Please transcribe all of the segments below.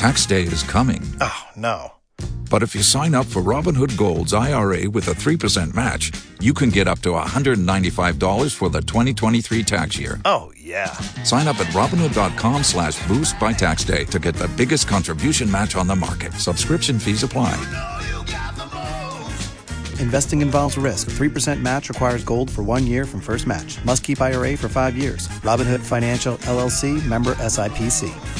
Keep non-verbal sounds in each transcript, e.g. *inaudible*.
Tax day is coming. Oh, no. But if you sign up for Robinhood Gold's IRA with a 3% match, you can get up to $195 for the 2023 tax year. Oh, yeah. Sign up at Robinhood.com slash boost by tax day to get the biggest contribution match on the market. Subscription fees apply. Investing involves risk. 3% match requires gold for one year from first match. Must keep IRA for five years. Robinhood Financial, LLC, member SIPC.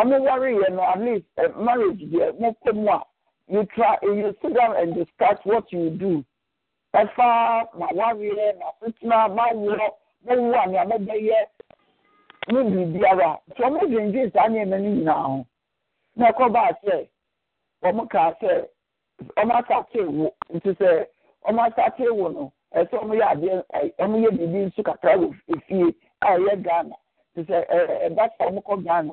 ọmụ wari ihe no at uh, marriage a you try you sit down and discuss what you do ɛfa ma wari ma fitna ma a nti na ɛkɔ baa sɛ ɔmo kaa sɛ ɔmo asate wo nti sɛ ɔmo asate wo no ọmụ ya ebibi nso kakra efie a ya ghana eh, eh, nti ghana.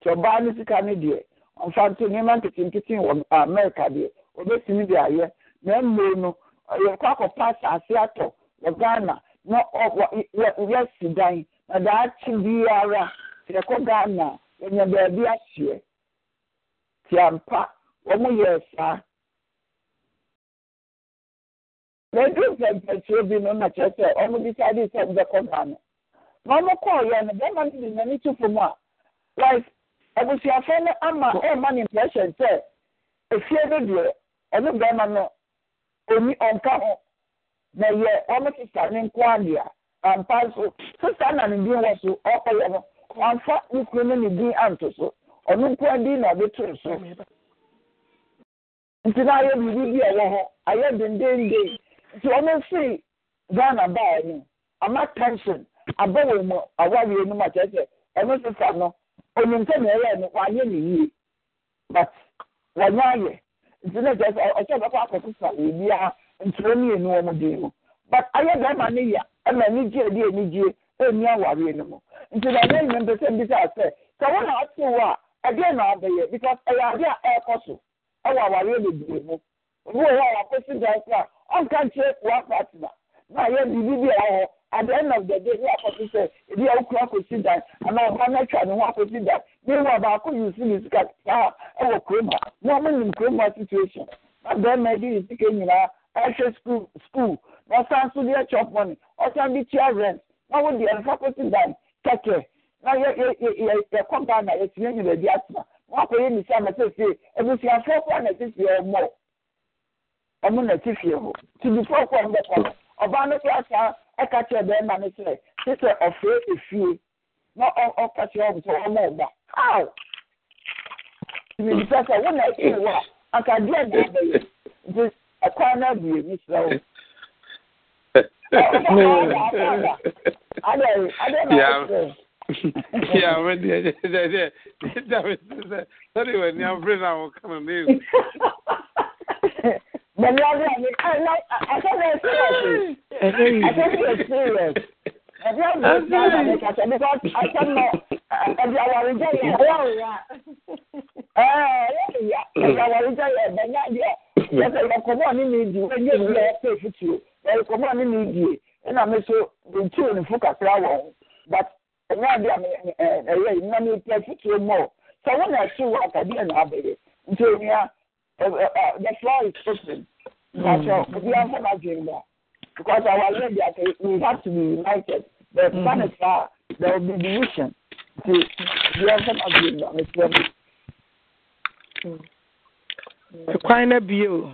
nti ɔbaa no sika no deɛ ɔmfa nto nneɛma nketenkete wɔ amerika deɛ ɔbɛtumi de ayɛ na mmiri no yɛkɔ akɔpa asase atɔ wɔ ghana na ɔ yɛsi dan na daakye biara yɛkɔ ghana yɛnya baabi ahyeɛ tiampa wɔn yɛ saa na edu mpɛmpɛtuo bi no na kyerɛ sɛ wɔn bisa de sɛ wɔn bɛkɔ ghana na wɔn kɔɔ yɛ no bɛrima no de n'ani tu fam a wife abusuafo no ama ɛma ne impression sɛ efie no deɛ ɔno no oni ɔnka na yɛ wɔn sista ne nko adeɛ ampa nso sista na ne din wɔ so ɔkɔyɛ no wamfa ne kunu no ne din anto so ɔno nko na bi ɛwɔ hɔ ayɛ dendenden nti ghana baa no ama tension abɔ wɔn mu mu akyerɛ sɛ ɔno onim nke na ɛyɛ no wanyɛ ne yie but wɔnyɛ ayɛ nti na kyerɛ sɛ ɔkyɛ bɛkɔ akɔso sa ebi a ntoro mmienu wɔn den mu but ayɛ bɛrima na ya ɛna anigye adi anigye ɛni awareɛ mu nti na ɛyɛ nyɛ mpɛ sɛ mbisa sɛ sɛ na ate wɔ a na because ɛyɛ a ɛrekɔ so ɛwɔ awareɛ bebree mu obi wɔ hɔ a wakɔsi dan na ayɛ biribi bi a at the end of the day ní àkọsí sẹ ebi ẹ kura kò sí dan àmà ọba mẹtra ni wọn kò sí dan ní ìwà baako yìí sí ní sika sáà ẹ wọ kuroma wọn mú ní kuroma situation na bẹẹma ẹbí yìí sika nyinaa ẹhwẹ school school na ọsan so di ẹchọ money ọsan bi tia rent na wọn di ẹnfa kò sí dan kẹkẹ na you yẹ yẹ yẹ kọ ghana yẹ tìyẹ nyina ẹbi atena wọn akọ yẹ nìsí àmà sẹsẹ ebusuafo ọkọ àná sẹsẹ ọmọ ọmọ nà ti fìyẹ hó tìbí fọkọ ọmọ bẹkọ ọba ní kí asa ɛka kyerɛ bɛrima no sɛ te sɛ ɔfrɛ efie na ɔka kyerɛ ɔmo sɛ ɔmo ɔba how tìmìtìpɛ sɛ wo na ɛkyi ne wo a anka deɛ deɛ bɛyɛ nti ɛkwan no abue ne srɛ wo. Yeah, I went there. That was that. That was the umbrella. Come on, *laughs* But love language, I like. I can experience it. I can experience. Ẹbí ọ̀gbìn ìgbà àgbà mi kàtẹ́ bí wọ́n ọ̀sẹ̀ mọ̀ ẹbí àwọ̀rì jẹ́ yẹ ẹ̀rọ ìyá. Ẹbí àwọ̀rì jẹ́ yẹ ẹ̀bẹ̀ náà yẹ. Ẹsẹ̀ ìkọ̀kọ̀ bọ̀ ní mi dì í ẹ̀yẹ́ ìlú ẹ̀ pé fìtì o. Ẹ̀kọ̀ bọ̀ ní mi dì í ẹ̀nà mi so ntí òní fún kakra wọ̀ ọ́n. But ẹ̀yẹ́ àbí àmì ẹ̀yẹ́ ìnà mi pẹ́ fìtì o mọ̀. Sọ wọ́n náà ṣì wọ àtàdé ẹ̀ náà bẹ̀rẹ̀. Nti òní à the floor is open. That's mm. right. If we have never dreamed that. Because our lady, we have to be united. The mm-hmm. planets are, there will be division. The, we have never dreamed that, Miss Wendy. Mm. Kwan na bio.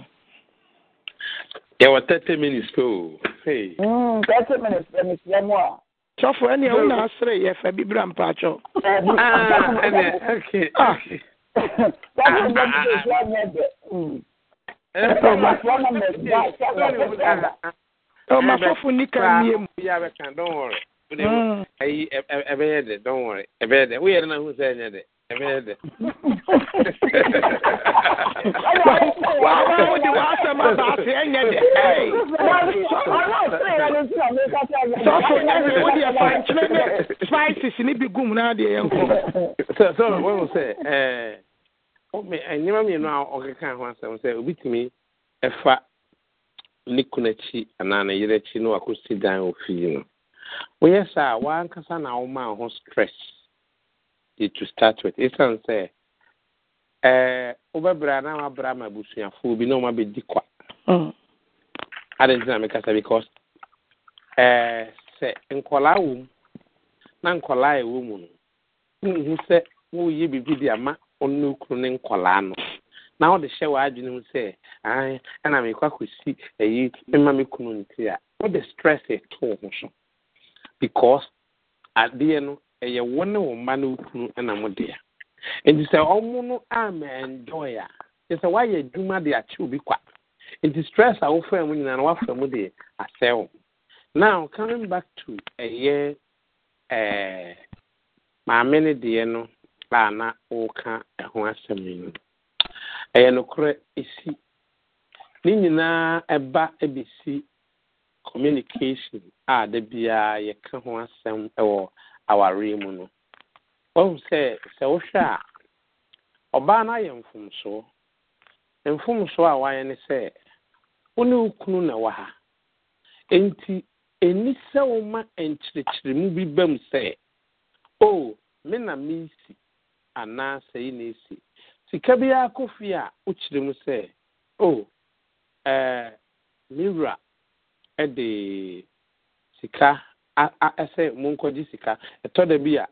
Yɛwɔ thirty minutes pe o. Mm, thirty minutes bɛ mesia mu a. Sɔfo ɛni ɛwo na asere yɛfɛ bibira mpatsɔ. Ɛnɛ ɛnɛ ok. Sɔfo ɛni ɛwo na asere yɛfɛ bibira mpatsɔ ọmọfọfún ní ká ní emu. yà bẹ kàn don worry. ayi ẹ bẹ yẹ dẹ don worry ẹ bẹ yẹ dẹ o yẹrẹ náà hùsẹ ẹ yẹ dẹ ẹ bẹ yẹ dẹ. wà á bá wọn di wàá sẹ́mu àbàtì ẹ yẹ dẹ. sọ́fù ẹ ní o di ẹ fà nkyẹn ní spices níbi gùn náà di ẹ yẹ nkọ. sọ sọ wọn sẹ ẹ. Oh, eh, nneɛma mmienu a ɔkeka ho asɛm sɛ tumi ɛfa ne kunu akyi anaa ne yere akyi na wakɔsi dan ofi yi no woyɛ saa wankasa na woma ho stress de to start with ɛsiane sɛ ɛɛ eh, wobɛbrɛ na wabra ma abusuafoɔ obi na wɔn abɛdi kwa mm. adanti na mekasa because ɛɛ eh, sɛ nkɔlaa wɔ mu na nkɔlaa ɛwɔ mu no wohu sɛ woyɛ biribi de ama onye ukwu ne no na ọ dị hyɛ w'adwene mu sɛ ae ɛna mekɔ akɔsi ayi mema me kunu nti a stress ɛto wo ho so because adeɛ no ɛyɛ e wo ne wo mma no wo kunu ɛna mo ya nti sɛ ɔmo no ama enjoy a sɛ obi kwa nti stress a wofra mu nyinaa no woafra mu de back to ɛyɛ e ɛɛ eh, maame no deɛ no a na woka ho asɛm yi ɛyɛ nokorɛ esi ne nyinaa ɛba ɛbɛsi communication a da biara yɛka ho asɛm ɛwɔ awareɛ mu no wahu sɛ sɛ wohwɛ a ɔbaa no ayɛ mfomsoɔ mfomsoɔ a wayɛ ne sɛ wo ne wo kunu na wɔ ha enti ɛni sɛ woma nkyerɛkyerɛmu bi ba mu sɛ o oh, me na si. anaa sɛi na esi sika biara kɔ fie a wokyerɛ mu sɛ o ɛɛ me wura ɛde sika a a ɛsɛ monkɔgye sika ɛtɔ da bi a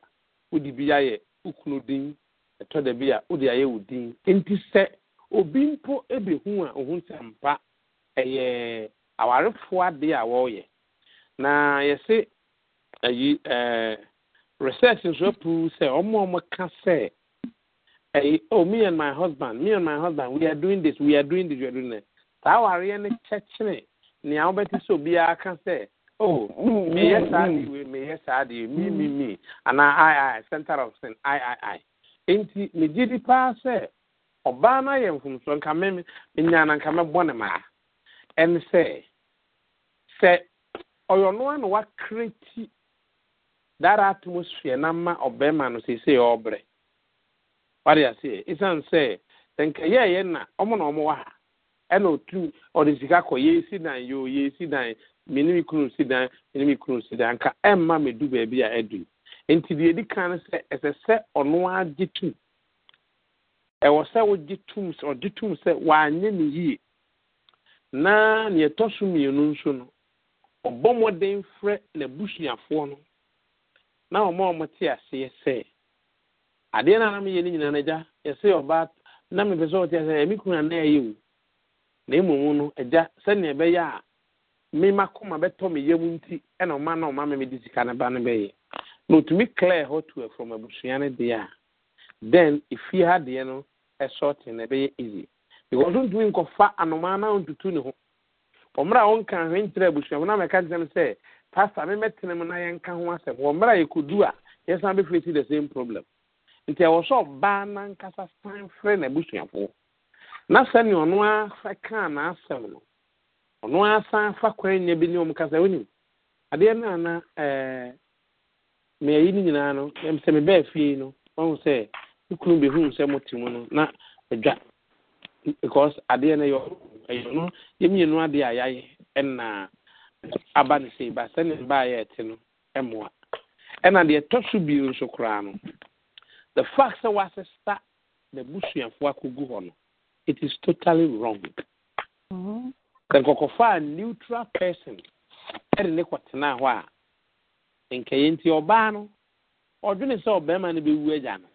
wode bi ayɛ wo kunu din ɛtɔ da bi a wode ayɛ wo din nti sɛ obi mpo ebehu a ohun sɛ mpa ɛyɛ awarefoɔ adeɛ a wɔreyɛ na yɛse ayi ɛɛ. research nso apu sɛ ɔmo ɔmo ka sɛ ɛyi oh me and my husband me and my husband we are doing this we are doing this we are doing this saa awareɛ no kyɛkyerɛ nea wobɛte sɛ obiara ka sɛ oh meyɛ saa de me meyɛ saa de me me mm-hmm. me anaa i i center of sin i i i nti megye di paa sɛ ɔbaa no ayɛ mfomsoɔ nka me menya na nka mɛbɔ ne maa ɛne sɛ sɛ ɔyɛ ɔnoa na that atmosphere na mma ɔbɛrima no seesei ɔbrɛ wade aseɛ ɛsiane sɛ sɛ nka yɛɛyɛ na ɔmo na ɔmo wɔ ha ɛna otu ɔde sika kɔ yɛsi dan yoo yɛsi dan mene kunu si dan mene kunu si dan ka ɛmma e me du baabi a ɛdu nti deɛ edi kan no sɛ ɛsɛ sɛ ɔno agye tum ɛwɔ sɛ wogye tum sɛ ɔgye tum sɛ wanyɛ ne yie na nea ɛtɔ so mmienu nso no ɔbɔ mmɔden frɛ n'abusuafoɔ no na ọmụ ọmụ te asị sɛ adeɛ na anam yɛ ne nyinaa n'agya yɛsɛ ɔbaa na mepɛ sɛ ɔte ase emi kuna na ɛyɛ o na emu mu no agya ebe ya a mmema kɔma bɛtɔ ihe yam nti ɛna ɔma na ọma mɛmɛ de sika ne ba ya bɛyɛ na otumi clear hɔ tu from abusua ne deɛ a then efie ha deɛ no ɛsɔɔte na ɛbɛyɛ easy because ntumi nkɔfa anomaa na ntutu ne ho ɔmmerɛ a wɔnka ahwenkyerɛ abusua mu na mɛka kyerɛ ya sɛ pasta me mɛtena mu na yɛnka ho asɛm wɔ mmerɛ a yɛkɔdu a yɛsan bɛfiri si the same problem nti ɛwɔ sɛ ɔbaa nankasa san frɛ n'abusuafoɔ na sɛnea ɔno asa kaa n'asɛm no ɔno asan fa kwan nya bi ne ɔm kasa wonim adeɛ no ana ɛɛ eh, meayi no nyinaa no sɛ mebɛɛ fie no ɔhu sɛ ne kunu bɛhuu sɛ mote mu no na adwa because adeɛ no ɛyɛ ɔno yɛmmienu adeɛ a yɛayɛ ɛnaa aba no sei ba sɛne a ɛte no ɛmoa ɛna deɛ ɛtɔ so bio nso koraa no the fact sɛ wɔasesa na busuafoɔ akɔgu hɔ no it is totally wrong mm-hmm. sɛ nkɔkɔfa a neutral person ɛde ne kɔtenaa hɔ a nkɛyɛ nti ɔbaa no ɔdwene sɛ ɔbarima no bɛwu agya no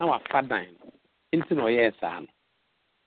na wafa dan no nti na ɔyɛɛ saa no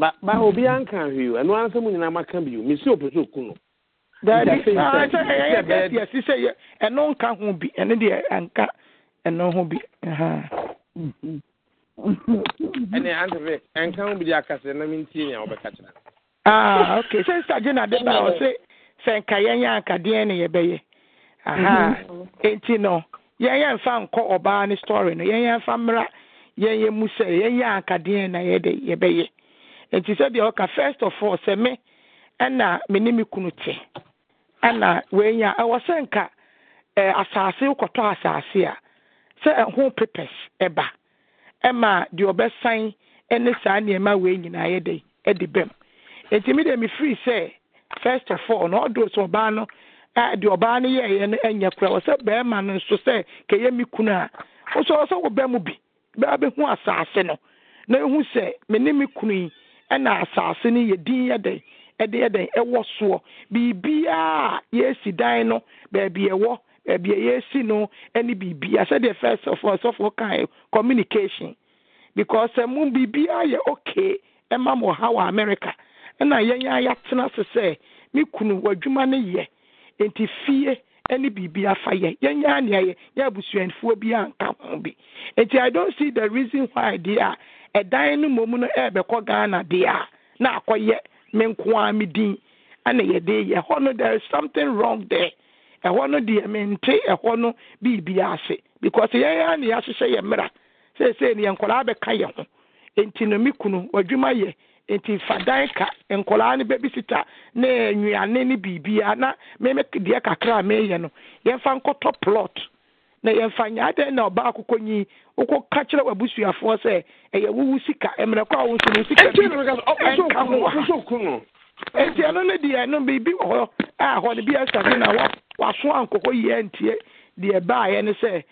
ba ba obiara nka ahwee o ɛno ara nsɛm nyinaa maka bi o mesi opɛ sɛ oku no daabi sɛ ɛno nka ho bi ɛno deɛ anka ɛno ho bi ɛne antefe ɛnka ho bi de akasɛ na mentie nea wobɛka kyerɛ ah okay sɛ na de ba ɔse sɛ nka yɛnyɛ anka deɛn ne yɛbɛyɛ aha mhm. enti no yɛnyɛ mfa nkɔ ɔbaa ne story no yɛnyɛ mfa mmra yɛnyɛ mu sɛ yɛ. anka na nti sɛdeɛ ɔka first of all sɛ me ɛna me ne me kunu te ɛna wenya ɛwɔ sɛ nka ɛɛ asaase kɔtɔ asaase a sɛ ɛho papers ɛba ɛma deɛ ɔbɛsan ɛne saa nneɛma wei nyinaa yɛ de ɛde bɛm nti mi de mi firi sɛ first of all na ɔdo sɛ ɔbaa no ɛɛ deɛ ɔbaa no yɛɛyɛ no ɛnyɛ kura wɔ sɛ bɛrima no nso sɛ kɛyɛ mi kunu a ɔsɔ ɔsɔ wɔ bɛn mu bi bɛɛ bɛ hu asase no na ehu sɛ me ne me kunu yi. ɛna asase no yɛ din yɛ dɛn ɛde yɛ dɛn ɛwɔ soɔ biribiara a yɛsi dan no baabi ɛwɔ baabi a yɛsi no ɛne biribiara sɛdeɛ fɛ sɔfoɔ sɔfoɔ kan communication because ɛmu eh, biribiara yɛ okay ɛma mo ha wɔ america ɛna yɛn a yɛatena se sɛ me kunu w'adwuma no yɛ nti fie ɛne biribi afa yɛ yɛn a nea yɛ yɛ abusuafoɔ bi anka ho bi nti i don't see the reason why deɛ a. ɛdan no mmom no ɛrebɛkɔ ghana deɛ a na akɔyɛ me nko a me din ɛna yɛde yɛ ɛhɔ no there is something wrong there ɛhɔ no deɛ mente ɛhɔ no biribi ase because yɛn a na yɛahyehyɛ yɛ mmera seesei no yɛ nkɔlaa bɛka yɛn ho nti no me kunu wadwuma yɛ nti fadan ka nkɔlaa no bɛbi sita ne nnuane ne biribiara na mɛmɛ deɛ kakra a mɛyɛ no yɛmfa nkɔtɔ plot na yɛmfa nya na ɔba akokɔ nyi wokɔka kyerɛ w'abusuafoɔ sɛ ɛyɛ wowu sika mmerɛ kɔ a wo nso no sika enti ɛno no deɛ ɛno biribi wɔ hɔ a hɔ no bi na waso ankɔkɔ yie ntie deɛ baayɛ no sɛ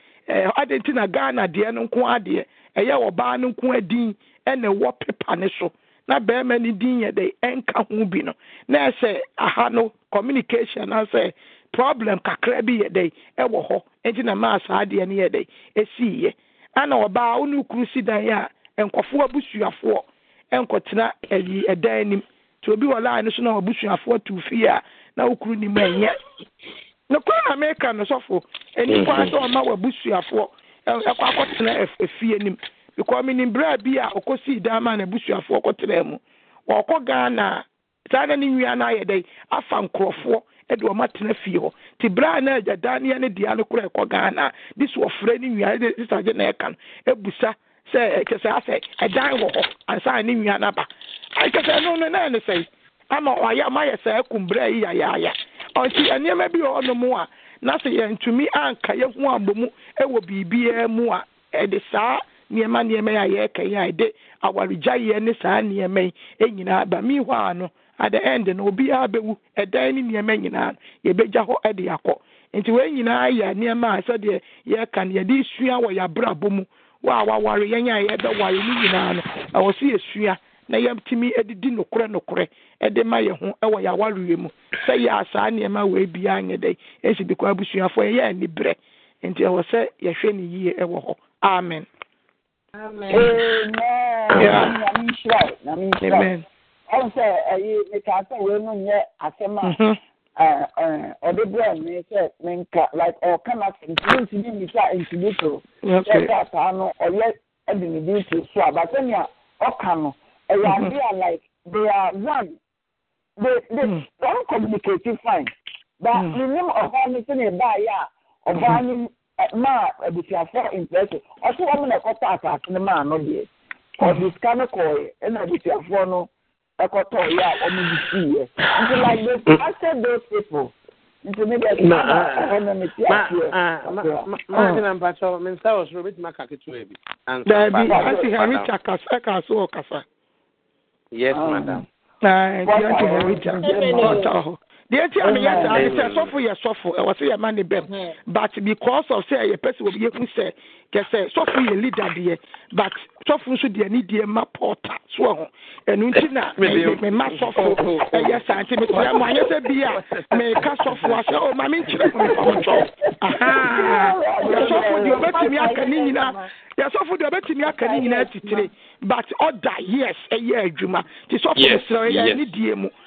adɛn nti na ghana deɛ no nko adeɛ ɛyɛ ɔbaa no nko adin ɛna ɛwɔ pepa ne so na no din yɛ de ɛnka ho bi no na ɛsɛ aha no communication na sɛ problem kakra bi yɛ dɛn ɛwɔ hɔ nti na maa saa adeɛ no yɛ dɛn esii yɛ ana ɔbaa ɔne kuru si dan yɛ a nkɔfoɔ abusuafoɔ nkɔtena ɛyi ɛdan nim nti obi wɔ line so na abusuafoɔ tu fie a na okuru nim ɛnyɛ ne koro na meka no sɔfo enipa sɛ ɔma wɔ abusuafoɔ ɛkɔ akɔtena efie nim because minim bere bi a ɔkɔsii dan ma na abusuafoɔ kɔtena mu ɔkɔ ghana saa na ne nwia na ayɛ dɛn afa nkorɔfoɔ. de wɔn atena fie hɔ te bere a na agya daneɛ ne dea no kora ɛkɔ ghana de so ɔfrɛ ne nwia de sisagye na ɛka no ebusa sɛ ɛkyɛ sɛ asɛ ɛdan wɔ hɔ ansa ne nwia n'aba ɛkyɛ sɛ ɛno no nan ne sɛ ama ɔayɛ ama yɛ sɛ ɛkum bere yi yayaaya ɔnti nneɛma bi wɔ ɔnom a na sɛ yɛntumi anka yɛho abɔ mu ɛwɔ e biribiara e mu a ɛde e saa nneɛma nneɛma yi a yɛreka yi a ɛde awaregyaeɛ ne saa nneɛma yi nyinaa ba mi hɔ ano at the end no obiara bɛwu ɛdan ne nyinaa yɛbɛgya hɔ de akɔ nti wɔn nyinaa yɛ nneɛma a eh, sɛdeɛ yɛka no yɛde sua wɔ yɛabrabɔ mu wɔ a waware yɛn a yɛbɛware no nyinaa no ɛwɔ so na yɛtumi didi nokorɛ nokorɛ de ma yɛn ho wɔ yɛawareɛ mu sɛ yɛa saa nneɛma wɔ biara nyɛ dɛ ɛsi de kɔ abusuafoɔ yɛyɛ aniberɛ nti ɛwɔ sɛ yɛhwɛ ne yie wɔ hɔ amen amen amen, amen. amen. amen. amen. amen. amen. amen. amen. ọsẹ ẹyi nke asẹ wee mu nye asɛm a mhm. ɔde brɛ mi sɛ nka like ɔka na sɛ ntumi ntumi nika ntumi so. sɛ sɛ asaa no ɔyɛ ɛde ne bi to so a bàtɛ nea ɔka no ɛyɛ mhm. ade a like they are one they they don mm. communicate fine but mi mm. nim ɔbaa mi sɛ a mhm. maa abusuafo mpɛɛso ɔso wɔn na ɛkɔtɔ asaase no maa no ọ dị sika no kɔɔ yɛ no. ɛkɔtɔ yɛ a wɔn mu si yɛ nti like they after those people nti mi bɛ tuma na ɛhɔ mi ti ase yɛ. maa ti na mpatsɔ mi nsa wɔ soro mi ti ma ka ketewa bi. dabi ati harita kasa kasa wɔ kasa. yes madam. ɛɛ nti ati harita ɔta hɔ deɛ ti a meyɛ saa ne sɛ sɔfo yɛ sɔfo ɛwɔ sɛ yɛma ne bɛm hmm. but because of sɛ ɛyɛ pɛ sɛ wɔ yɛhu sɛ kɛsɛ sɔfo yɛ leader deɛ but sɔfo nso deɛ ne deɛ ma pɔɔta soɔ ho ɛno nti na *laughs* mema sɔfo oh, oh, oh. ɛyɛ saa nti mesɛ mo anyɛ sɛ bi a meka sɔfo a sɛ o ma menkyerɛ mo mepamotɔ yɛsɔfo deɛ ɔbɛtumi aka ne nyinaa yɛsɔfo deɛ ɔbɛtumi aka ne nyinaa titire but ɔda yes ɛyɛ adwuma nti sɔfo mesrɛ ɛyɛ ne die mu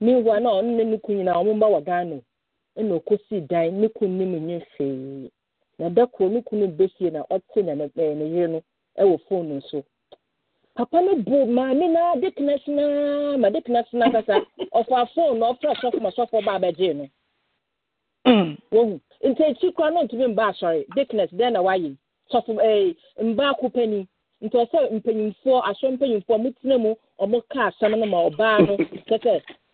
meanwhile na ɔno ne ne kun ɔmo mba wɔ ghana ɛna okosi dan ne kun ne mu nye hwee na da koro ne besie na ɔte na ne ne yere no ɛwɔ papa no bu maame na de tena ma de tena sena kasa na ɔfra sɔfo ma sɔfo ba abɛgye no wohu nti kora no mba asɔre dɛn na wayɛ sɔfo ɛɛ mba akopani nti ɔsɛ mpanyinfoɔ asɔ mpanyinfoɔ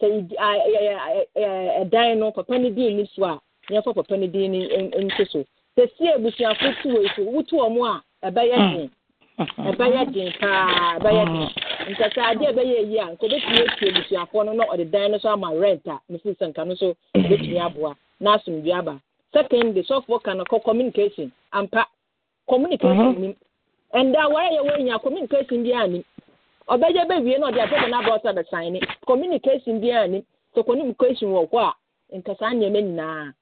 sɛ ɛdan no papa no din ni so a yɛmfa papa no din ni nto so sɛ sie abusuafo tu wɔ so wotu wɔ mu a ɛbɛyɛ den mm. ɛbɛyɛ den paa ɛbɛyɛ den mm. nkasa adeɛ ɛbɛyɛ yi a nka obetumi etu abusuafo no na ɔde dan no so ama rent a ne sisi nka no so obetumi aboa na asomdwe aba second de sɔfo ka no kɔ communication ampa communication mm-hmm. nim ɛnda awara yɛ wɔ nya communication bi a nim. ọbẹjẹ bẹ wie na ọdi asẹsẹ n'aba bẹ san ni communication bi ani communication wọ a nkasa nneɛma nyinaa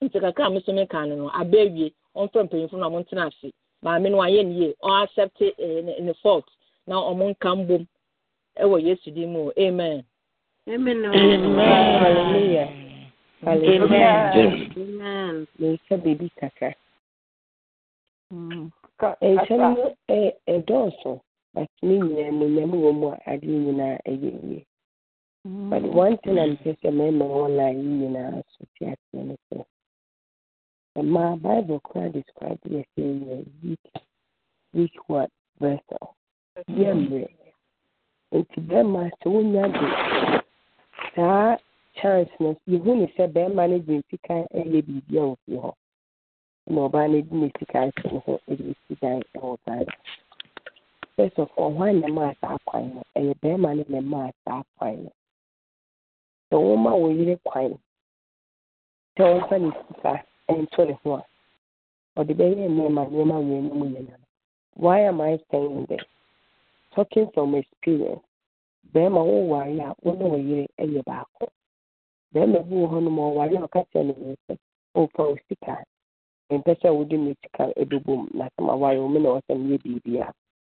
nti a mesome ka no no aba awie ɔmfrɛ mpanyinfo na ɔmo ntena ase maame no eh, na ɔmo nka mbom ɛwɔ yesu mu amen. But me mm. But one thing I'm just a mɛma wɔn you know, so te aseɛ ne sɛ Bible describe the sɛ yɛ weak weak what vessel yɛ And nti bɛrima sɛ wonya chance no yɛhu ne sɛ bɛrima no de sika ɛyɛ biribi a ɔfiri hɔ na ɔbaa no de ne sika hyɛ ne first of all hwan na ɛmaa saa kwan no ɛyɛ bɛrima no na ɛmaa saa kwan no sɛ wɔma wo yere kwan sɛ wɔmfa ne sika ɛnto ne ho a ɔde bɛyɛ nneɛma nneɛma why talking from experience a wo ne wo yere ɛyɛ baako bɛrima bi wɔ hɔ nom ɔware a ɔka kyerɛ ne ho sɛ ɔfa wo sika mpɛ sɛ na sɛ maware wo me na ɔsɛ meyɛ biribiara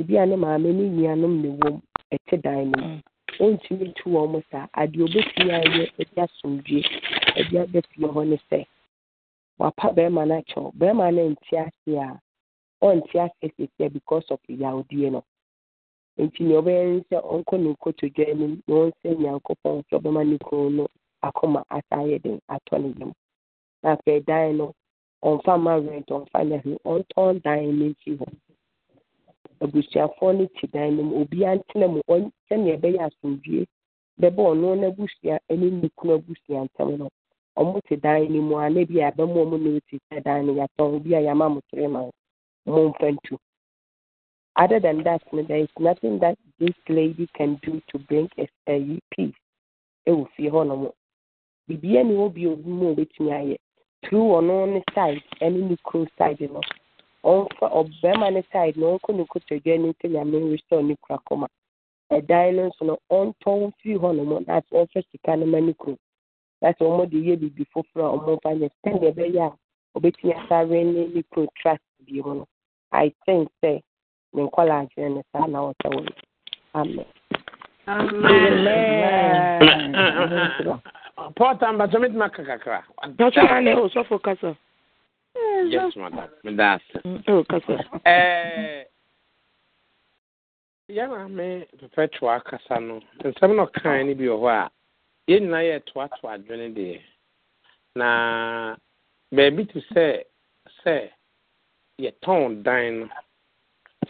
ebi a ne maame ne nuanom na wɔm ɛte dan no mu ɔntumi mm. ntu wɔn saa adeɛ obetumi ayɛ ɛde asomdwe ɛde aba fie hɔ ne sɛ wapa barima no akyɛw Barima no nte ase a ɔnte ase sesia because of yawdeɛ no nti nea ɔbɛyɛ ne sɛ ɔnkɔ ne nkotodwa anim na ɔnsɛ nyankopɔn sɛ ɔbɛma ne kunu no akoma asa ayɛ den atɔ ne yam na afei dan no ɔmfa ma rent ɔmfa nyɛ hwee ɔntɔn dan no nsi hɔ abusuafoɔ no te dan no mu obiara ntena mu ɔn sɛnea ɛbɛyɛ asomdwie bɛba ɔno n'abusua ɛne ne kunu abusua ntam no ɔmo te dan no mu a na bi a bɛma wɔn notice dan no yɛatɔn bi a yɛama mo three months momfa ntu other than that there is nothing that this lady can do to bring a, peace ɛwɔ fie hɔ nom. biribiara ni hɔ bio mu a obɛtumi ayɛ through ɔno ne side ɛne ne kuro side no ɔbarima no side na ɔnkɔ ne nkotodwe anim sɛ nyame restore ne kura kɔma ɛdan e no nso no ɔntɔn na sɛ ɔmfa sika no ma ne kurom na sɛ wɔmde yɛ biribi foforɔ a ɔmomfa nyɛ sɛdeɛ ɛbɛyɛ a ɔbɛtumi asare ne ne trust mu no i think sɛ ne nkɔla adwene saa na ɔsɛ amen Amen. Amen. Amen. Amen. Amen. Amen. Amen. Amen. Amen. Amen. Amen. Amen. Amen. Amen. Amen. Amen. Eh, yes, madam. Medasa. Oh, eh, ya na me perpetual akasa no. Nsɛm na ɔkan ne bi wɔ hɔ a, yɛn nyinaa yɛ toatoa adwene deɛ. Na beebi te sɛ sɛ yɛtɔn dan no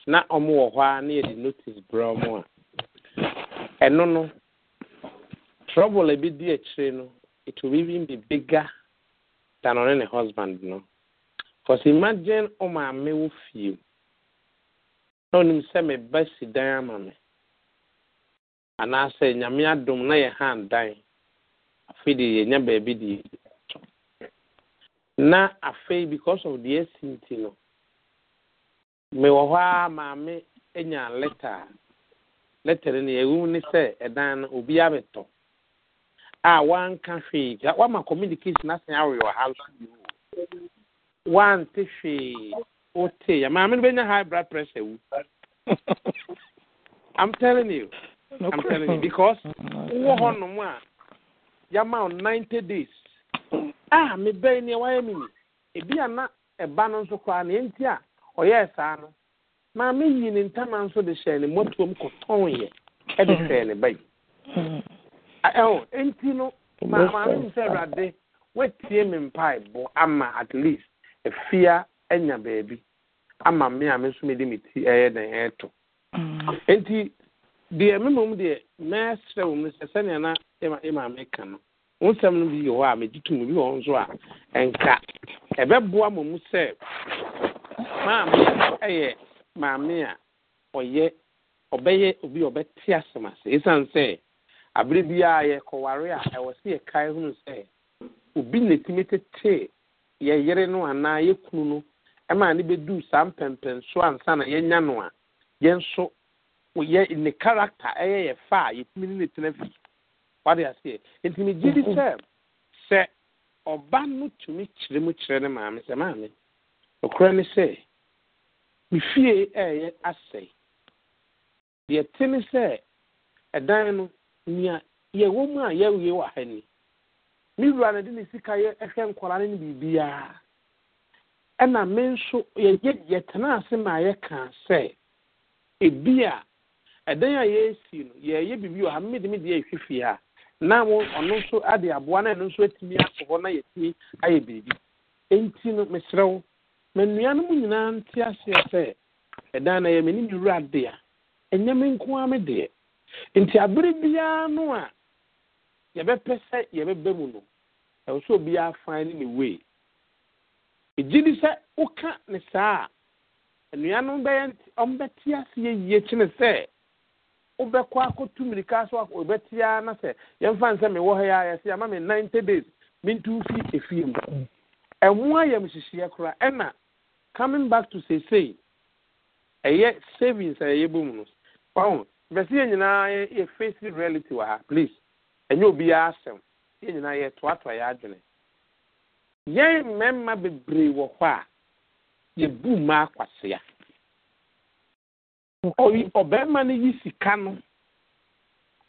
na ɔmo wɔ hɔ a na yɛde notice brɛ ɔmo a, ɛno no, trouble a bi di akyire no, it will even be bigger than ɔne ne husband no. Because imagine ụmụame wụ fie na onim sɛ meba si dan ama me anaasɛ nyame adom na yɛ ha dan afei de yɛnya baabi de yɛtɔ na afei because of deɛ asi nti no mewɔ hɔ a maame anya leta a ah, leta no neɛ ɛwom ne sɛ ɛdan no obi abɛtɔ a wanka hwee wama communication asan awe wɔ ha nso bio wante hwee wote ya maame no bɛnya high blood pressure wu *laughs* i'm telling you i'm telling you because wowɔ hɔ nom a yɛma wo ninety days a ah, mebɛi neɛ wayɛ me ni ebi a na ɛba no nso koraa neɛ nti a ɔyɛɛ saa no maame yi ne ntama nso de hyɛɛ ne mmɔtoam kɔtɔnyɛ ɛde hmm. hyɛɛ ne ba yi ɛho enti no maame sɛ awurade watie me mpaebɔ ama at least efia nya baabi ama me a me nso me de me ti ɛyɛ den ɛɛto mm. nti deɛ me mom deɛ mɛsrɛ wɔ mu sɛ sɛnea na ɛma e ɛma e me ka no wɔn nsɛm no bi yɛ hɔ a megye to mu bi wɔ hɔ nso a ɛnka ɛbɛboa mo mu sɛ maame ɛyɛ maame a ɔyɛ ɔbɛyɛ obi a ɔbɛte asɛm ase esan sɛ abere biara yɛ kɔware a ɛwɔ sɛ yɛ kae ho sɛ obi na etimi tete yɛyere no anaa yɛ kunu no ɛma ne bɛduu saa mpɛmpɛnso ansa na yɛnya no a yɛn yɛ ne character ɛyɛ yɛ fa a yɛtumi ne ne tena fi wade aseɛ nti ne gye di sɛ mhm. sɛ ɔba no tumi kyerɛ mu kyerɛ ne maame sɛ maame ɔkora ne sɛ me fie ɛyɛ asɛe deɛ te ne sɛ ɛdan no nea yɛwɔ mu a yɛwie wɔ ha ni me wura no de ne sika yɛ hwɛ nkwaraa no ne biribiara ɛna me nso yɛyɛ yɛtena ase ma yɛka sɛ ebi a ɛdan a yɛresi no yɛyɛ biribi wɔ ha mmedi mi deɛ ehwɛ fie na mo ɔno nso ade aboa na ɛno nso atumi akɔ hɔ na yɛtumi ayɛ biribi enti no mesrɛw ma nnua no mu nyinaa nte aseɛ sɛ ɛdan na yɛ m'anim wura de a ɛnyɛ me nko ara me deɛ nti abere biara no a yɛbɛpɛ sɛ yɛbɛbɛ mu no ɛwɔ sɛ obiara fan ne ne wei egyi di sɛ woka ne saa a nnuanom bɛyɛ ɔmbɛte ase yɛyie kyene sɛ wobɛkɔ akɔtu mmirika so wobɛte ara na sɛ yɛmfa ne sɛ mewɔ ha yɛ a yɛsɛ ama me ninety days mentu fi efie mu ɛho ayɛmhyehyeɛ koraa ɛna coming back to seesei ɛyɛ savings a yɛyɛ bɔ mu no wahu bɛsi yɛ nyinaa yɛ face reality wɔ ha please ɛnyɛ obiara asɛm yɛn nyinaa yɛtoatoa yɛ adwene yɛn mmarima bebree wɔ hɔ a yɛbu mmaa kwasea ɔbarima no yi sika no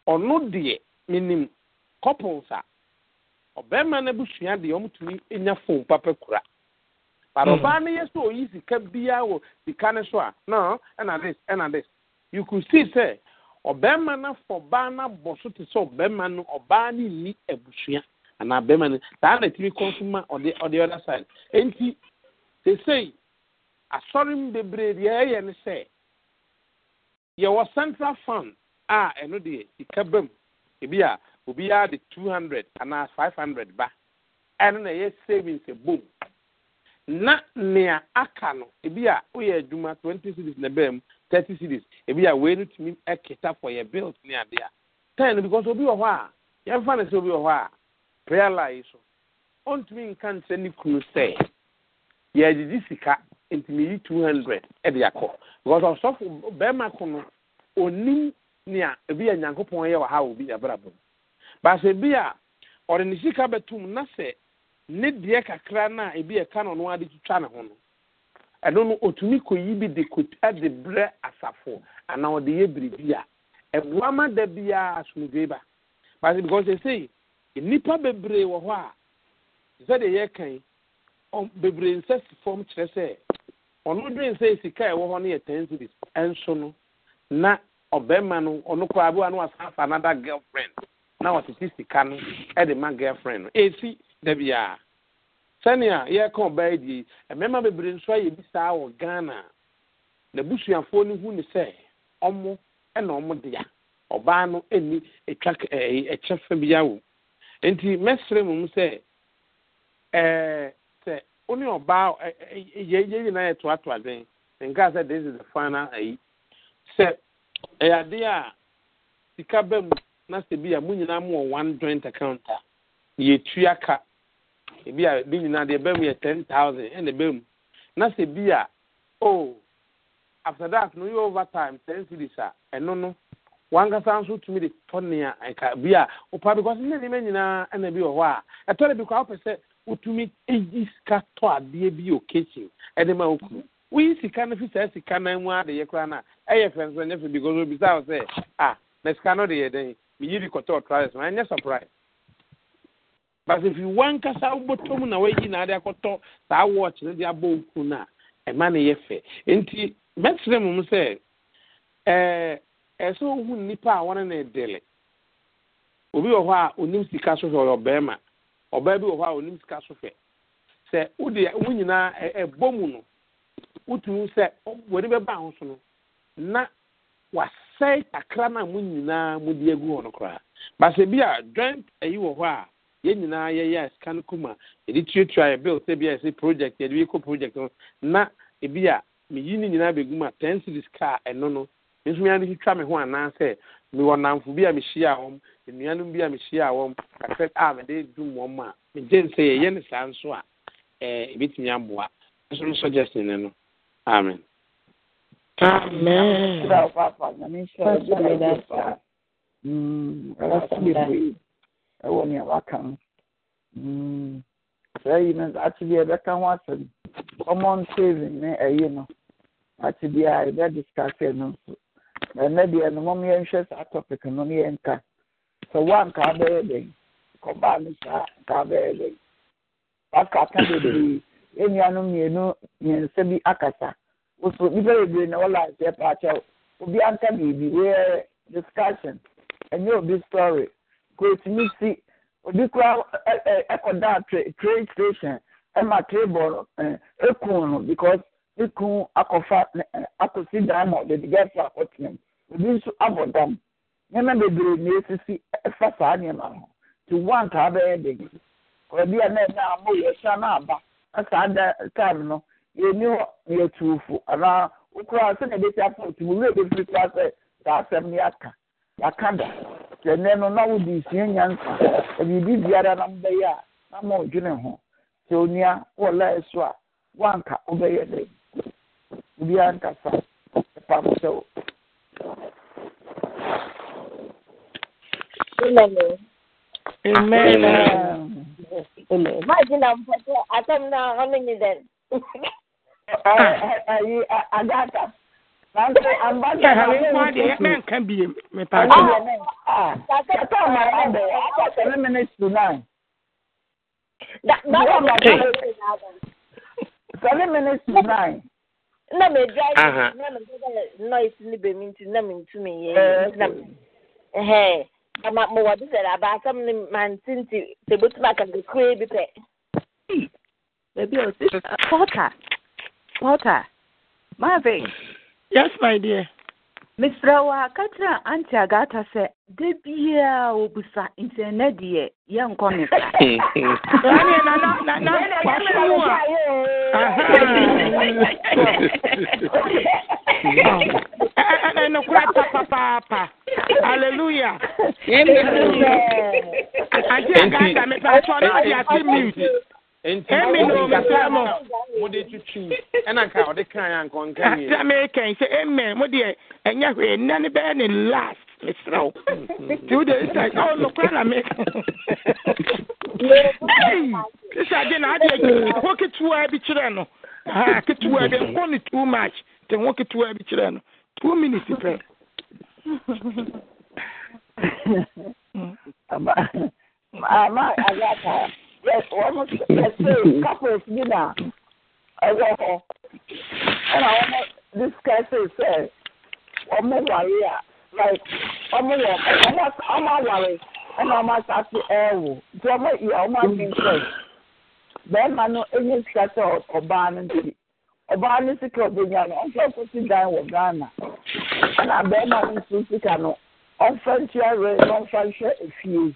ɔno deɛ menim couples a ɔbarima no abusua deɛ ɔmtumi nya phone papa kura but ɔbaa no yɛ sɛ oyi sika biara wɔ sika no so a no ɛna dis ɛna dis you could see sɛ ɔbɛrima no afɔ ɔbaa no abɔ so te sɛ ɔbɛrima no ɔbaa no nni abusua anaa na side nti sesei asɔre mu bebree deɛ ɛyɛ ne central fund a ɛno deɛ sika ba ebi a obiara de two hundred anaa five hundred ba ɛno na ɛyɛ savings ebom na nea aka no ebi a woyɛ adwuma twenty thirty cities ebi a wei no tumi kita for yɛ bills ne adeɛ ten no because obi wɔ hɔ a yɛmfa no sɛ obi wɔ hɔ a prayer line so ɔntumi nka nkyerɛ ne kunu sɛ yɛagyegye sika nti meyi two hundred de akɔ because ɔsɔfo bɛrima ko no onim nea ebi a nyankopɔn yɛ wɔ ha wɔ bi abrabɔ mu baasa ebi a ɔde ne sika bɛtum na sɛ ne deɛ kakra no a ebi ɛka no ɔno ade twitwa ne ho no ɛno no otumi kɔyi bi de kota de brɛ asafo anaa ɔde yɛ biribi a ɛboa ma da biara asomdwe ba basi because ɛsei nnipa bebree wɔ hɔ a sɛdeɛ yɛka yi bebree nsɛ si fam kyerɛ sɛ ɔno dwen sɛ sika a ɛwɔ hɔ no yɛ ten cities ɛnso no na ɔbɛrima no ɔno koraa bi wa no wasan fa another girlfriend na wɔtete sika no ɛde ma girlfriend no esi da biara. sɛnea yɛreka ɔbaa yi die mmarima bebree nso ayɛ bi saa wɔ ghana na busuafoɔ no hu ne sɛ ɔmo ɛna ɔmo dea ɔbaa no ɛni ɛtwa ɛɛ ɛkyɛ fa bi awo nti mɛsrɛ mu sɛ ɛɛ sɛ ɔne ɔbaa ɛɛ yɛ yɛ nyinaa yɛ toatoa den nka sɛ this is the final ɛyi sɛ ɛyɛ adeɛ a sika bɛ mu na sɛ bi a mo nyinaa mo wɔ one joint account a yɛtua ka ebi a ebi nyinaa deɛ bɛm yɛ ten thousand ɛna bɛm na sɛ bi a oh after that no yɛ over time ten series a ɛno no wankasa nso tumi de tɔ nea ɛka bi a ɔpa because ne nneɛma nyinaa ɛna bi wɔ hɔ a ɛtɔ de bi kɔ a wopɛ sɛ wotumi eyi sika tɔ adeɛ bi occasion ɛde ma okuru woyi sika no fi saa sika nan mu adeyɛ koraa na ɛyɛ fɛn so ɛnyɛ fɛ because obi sa wɔ sɛ ah na sika no de yɛ dɛn meyi de kɔtɔ ɔtraes ma ɛnyɛ surprise basi fi wankasa wobɔtɔ na wayi na ade akɔtɔ saa wɔɔkye no de abɔ oku no a ɛma no yɛ fɛ nti mɛkyerɛ mu sɛ ɛɛ ɛsɛ ohu nnipa a wɔne no ɛdele obi wɔ hɔ a onim sika so hwɛ ɔyɛ ɔbɛrima ɔbaa bi wɔ hɔ a onim sika so hwɛ sɛ wode wo nyinaa ɛbɔ mu no wotumi sɛ wɔde bɛba ho so no na wasɛe kakra na a mo nyinaa mode agu hɔ no koraa basɛ bi a joint ayi wɔ hɔ a yɛn nyinaa yɛyɛ sika kuma yɛde tuatua yɛ bill sɛbi a yɛsɛ project yɛde bi project no na ebi a meyi ne nyinaa bɛgu mu a ten series car ɛno no nso mi ade twitwa me ho anaasɛ mewɔ namfo bi a mehyia wɔm nnuanom bi a mehyia wɔm kakra a ah, mede dum wɔm a megye nsɛ yɛyɛ ne saa nso a ɛɛ eh, ebitumi aboa nso no suggestion ne no amen. amen. amen. ɛwɔ nea waka ho saa yi no ate deɛ ɛbɛka ho asɛm common saving ne ɛyi no ate deɛ a yɛbɛdiscase no nso ɛnɛ deɛ no mom yɛnhwɛ saa topic no no yɛnka sɛ woanka bɛyɛ dɛn kɔbaa no saa nka bɛyɛ dɛn waka ka bebree ɛnuanom mmienu mmiɛnsa bi akasa woso nnipa bebree na wɔla nseɛ paakyɛw obi anka biribi uh, discussion ɛnyɛ obi story kòtùmí si obi kura ɛkɔda e, e, trade station ɛma e table ekun no because ekun akɔfa akɔsi dan ma obi nso na esisi fasa saa nneɛma ho ti one kaa bɛyɛ de yi ɔbi a na aba ɛsaa da time no na otu eh, saa ya ka da. sɛ nnɛ no na wode sua nyansa biribi biara na a na ma ɔdwene ho sɛ onua wɔlae so a woanka wobɛyɛ dɛ obiara nkasa ɛpam sɛ wo Amen. Amen. ɛhɛre nkwa deɛ Marvin. Yes, my dear. Miss Rawa, Katra Auntie Agata sɛ de biara obusa sa. Hallelujah. emi na omesa mo mo de tutu ɛna nka ɔde kan ya nkɔ nka yie asa mi kan sɛ amen mo deɛ ɛnya hwɛ nna ne bɛyɛ ne last mesra o two days time ɔ nokora na mi ɛyi sisa de na adeɛ ho ketewa bi kyerɛ no ha ketewa bi nkɔ ne too much te ho ketewa bi kyerɛ no two minutes pɛ. *laughs* ama ama wɔn ɛsɛ couples bi na ɛwɔ hɔ ɛna wɔn discusse sɛ wɔn wari a like wɔn wɔ wɔn awari ɛna wɔn asase ɛɛwo nti wɔn yɛ wɔn adinfɛs bɛrima no enye sikasa ɔbaa no nti ɔbaa no sika ɔbɛnya no ɔnfɛ kosi dan wɔ ghana ɛna bɛrima no nso sika no ɔnfɛ ntua re na ɔnfɛ nhwɛ efie.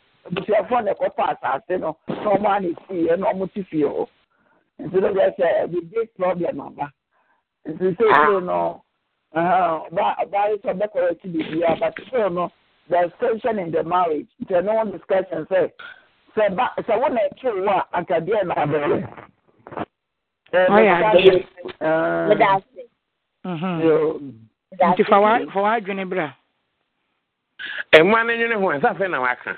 abusuafoɔ na ɛkɔtɔ asase no na ɔmo ani fie na ɔmo ti fie hɔ nti no bɛ sɛ ɛbi big problem aba nti seesei ah. no ɔbaa ɔbaa yi sɛ ɔbɛkɔrɔ akyi beebi a but still no there is tension in the marriage nti ɛno wɔn discussion sɛ sɛ ba sɛ wɔn na ɛkyew wɔ a akadeɛ na abɛyɛ. ɔyɛ adeɛ mhm. nti fa wa fa wa adwene bra. ɛmu anenwene ho ɛsɛ afei na waka.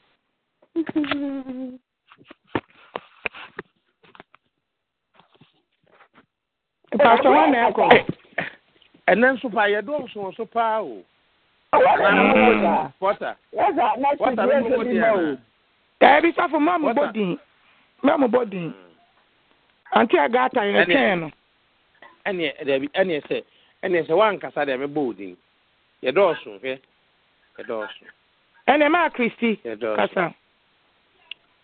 Pastor, wọ́n na ẹ̀kọ́. Ẹ̀nẹ́ nso pa, yẹ dọ́ nso nso paa o. Wọ́tà. Wọ́tà ló mú di ẹ̀nà. Ẹ̀bi sáfù mọ́ mu bó dín. Mọ́ mu bó dín. Àǹtí ẹ̀gá àtàyè rẹ̀ eni, ese, nọ. Ẹni ẹ̀dẹ̀bi ẹni ẹsẹ̀ ẹni ẹsẹ̀ wà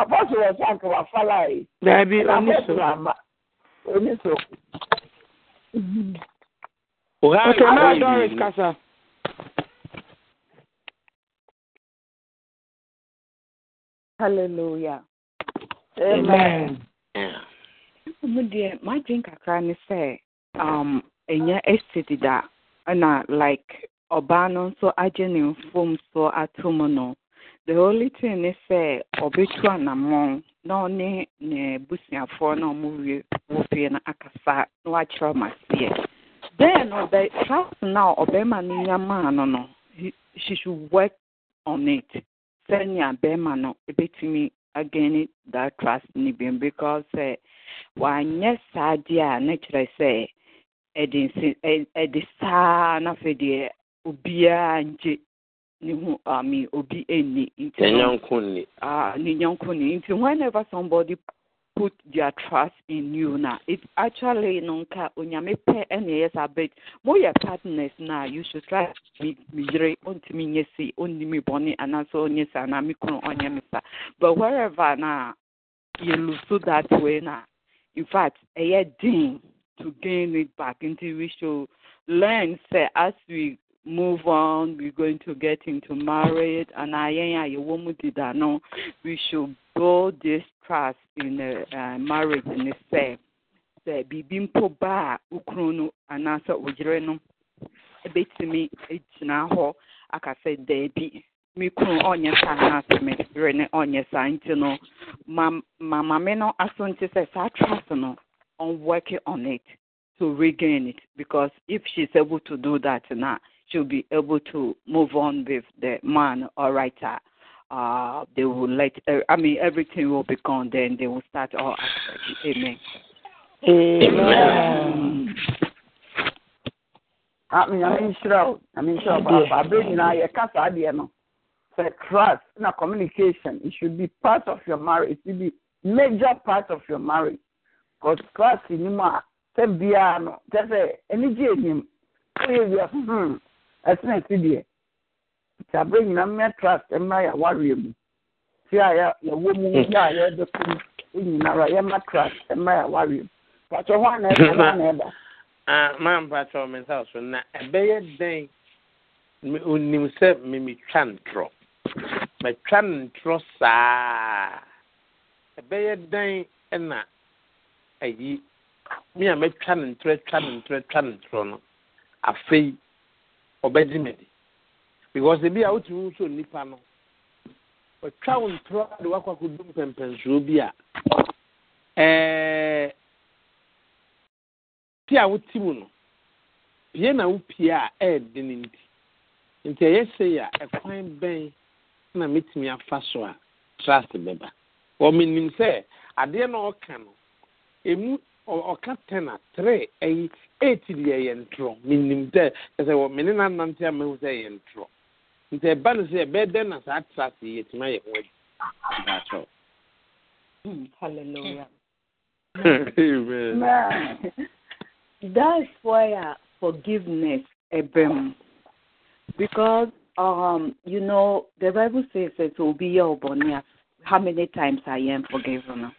apɔsɔ wɔ sanke wafala yi. daabi oniso oniso. ok naa doris kasa. hallelujah. amen. My deɛ m'adwin kakra ne sɛ um, ɛnyɛ ɛsi that, ɛna uh, like ɔbaa no nso agye ne so ato mu the only thing ne eh, sɛ na anammɔn na ɔne ne busuafoɔ na ɔmo wie wɔ fie no akasa na wakyerɛ ɔmo aseɛ then ɔbɛ trust na ɔbɛrima no nya maa no no she should work on it sɛnea bɛrima no ebɛtumi again that trust ne bi because sɛ eh, wanyɛ saa deɛ a ne kyerɛ sɛ nsi ɛde saa na afei deɛ obiara ngye ne ho I mean obi any nti whenever somebody put their trust in you now it's actually no unyame pe pɛ ɛna ɛyɛ sa but moyɛ partners na you should try me yere ontumi nyɛ si onnimi bɔne anaasɛ onyɛ sa anaa me kunu ɔnyɛ me sa but wherever na you lose that way na in fact ɛyɛ den to gain it back until we should learn say as we move on, we're going to get into marriage, and I ain't we should build this trust in the uh, marriage in itself. Sɛ biribi mpo ba ukrono anasa ujireno. anaasɛ ogyere no ebetumi egyina hɔ aka sɛ daabi me kunu ɔnyɛ saa anaasɛ me yere no ɔnyɛ no ma ma no aso nti sɛ trust no I'm working on it to regain it because if she's able to do that now to be able to move on with the man or writer. Uh, uh, they will let, uh, I mean, everything will be gone then. They will start all aspects. Amen. Amen. Amen. Amen. Sure. Amen. Sure. But I now you can't say no. So trust in a communication. It should be part of your marriage. It should be major part of your marriage. Because trust in him, say, be Just say, any in him. you just, hmm, ɛsena ɛsi deɛ ntabere nyinaa mmea trust mmea yɛ awareɛ mu ti a yɛwɔ mu hmm. yɛ a yɛde ko mu nyinara yɛma trust mmea yɛ awareɛ mu pàtó hɔ ana ɛda hɔ ana maa mi so na ɛbɛyɛ dɛn onim sɛ mimi twa ntorɔ mɛtwa ntorɔ saa ɛbɛyɛ dɛn ɛna ayi mi twa twa no ɔbɛgye medi because ebia wotumihu so nipa no ɔtwa wo ntrɔa de woakwakodum pɛmpɛnsoɔ bi a tia woti mu no pia na wo pie a ɛɛde no nti nti ɛyɛ see a ɛkwan bɛn na mɛtumi afa so a trust bɛba ɔmenim sɛ adeɛ na ɔka nom ɔka ɛyi ntorɔ dɛ ɛsɛ wɔ mene na nante sɛ ntorɔ nti ɛba no sɛ na saa tra ho adi hmm, hallelujah *laughs* amen that's why uh, forgiveness ebem because um you know the bible says it will be your ɔbɔne how many times i am forgiven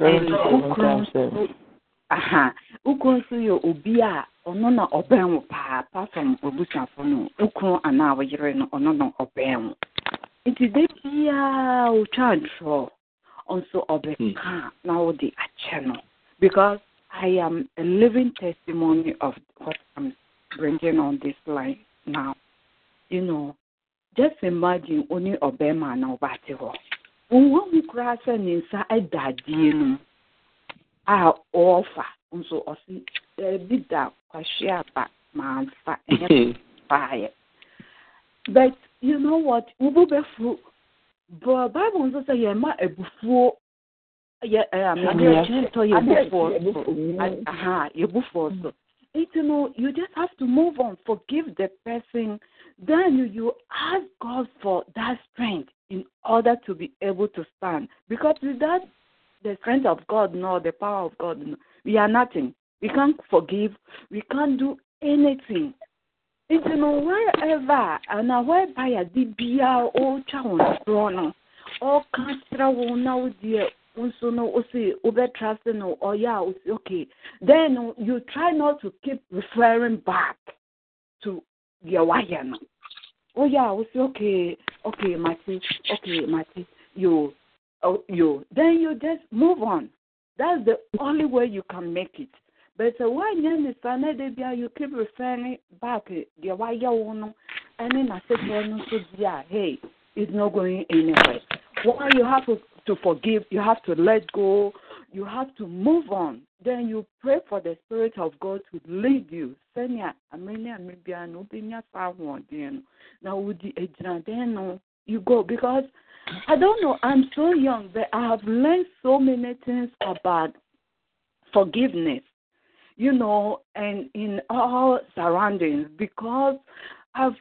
aha wokuro nso yɛ obi a ɔno na ɔbɛn wo paa pasom obusuafo no wokuro anaa woyere no ɔno na ɔbɛn wo nti da biaa wotwa ntorɔ ɔnso ɔbɛka hmm. na wode akyɛ no because i am a living testimony of what i'm bringing on this line now you know just imagine only ɔbɛrima na ɔbaate hɔ wohu koraa sɛ ne nsa da adeɛ no mu a ɔɔfa nso ɔsi ɛbi da kwahwe aba maamfa ɛnyɛ paayɛ hmm. but you know what wobu bɛfuru bɔ bible nso sɛ yɛn ma ebufuo yɛ ɛɛ adeɛ tɔ yɛbufuo aha yɛbufuo hmm. so you no you just have to move on forgive the person then you ask God for that strength in order to be able to stand. Because without the strength of God nor the power of God, we are nothing. We can't forgive. We can't do anything. It's Nti no wherever ana whereby ade biara oh, ɔretwa oh, wɔn soɔ no ɔka oh, kyerɛ wo na wo deɛ nso no wosi wobɛtra se no or a okay then you try not to keep referring back to deɛ wayɛ oh yeah, I say, okay, okay, Martin, okay, Martin, you, oh, you. Then you just move on. That's the only way you can make it. But uh, why then the you keep referring back eh, the why you and then I said, so yeah, hey, it's not going anywhere. Why you have to, to forgive, you have to let go, you have to move on then you pray for the Spirit of God to lead you. Senya amenya amibia no binya sahuodin. Now udi ejinaden no you go because I don't know. I'm so young, but I have learned so many things about forgiveness. You know, and in all surroundings because I've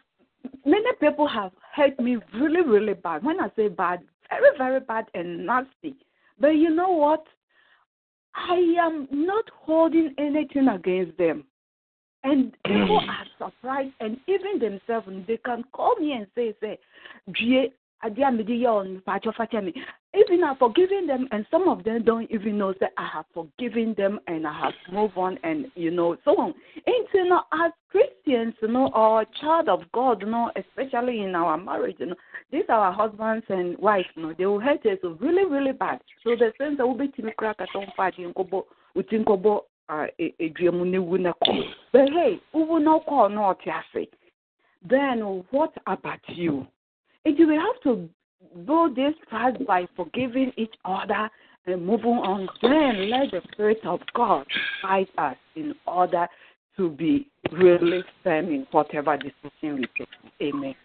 many people have hurt me really really bad. When I say bad, very very bad and nasty. But you know what? I am not holding anything against them. And people *clears throat* are surprised, and even themselves, they can call me and say, say, even I've forgiven them, and some of them don't even know that I have forgiven them and I have moved on, and you know, so on. And you know, as Christians, you know, or child of God, you know, especially in our marriage, you know, these are our husbands and wives, you know, they will hurt us really, really bad. So the sense that will be to crack at some fight in Kobo, within Kobo, uh, a dream, but hey, who will not call not Then what about you? And you will have to build this trust by forgiving each other and moving on. Then let the Spirit of God guide us in order to be really firm in whatever decision we take. Amen.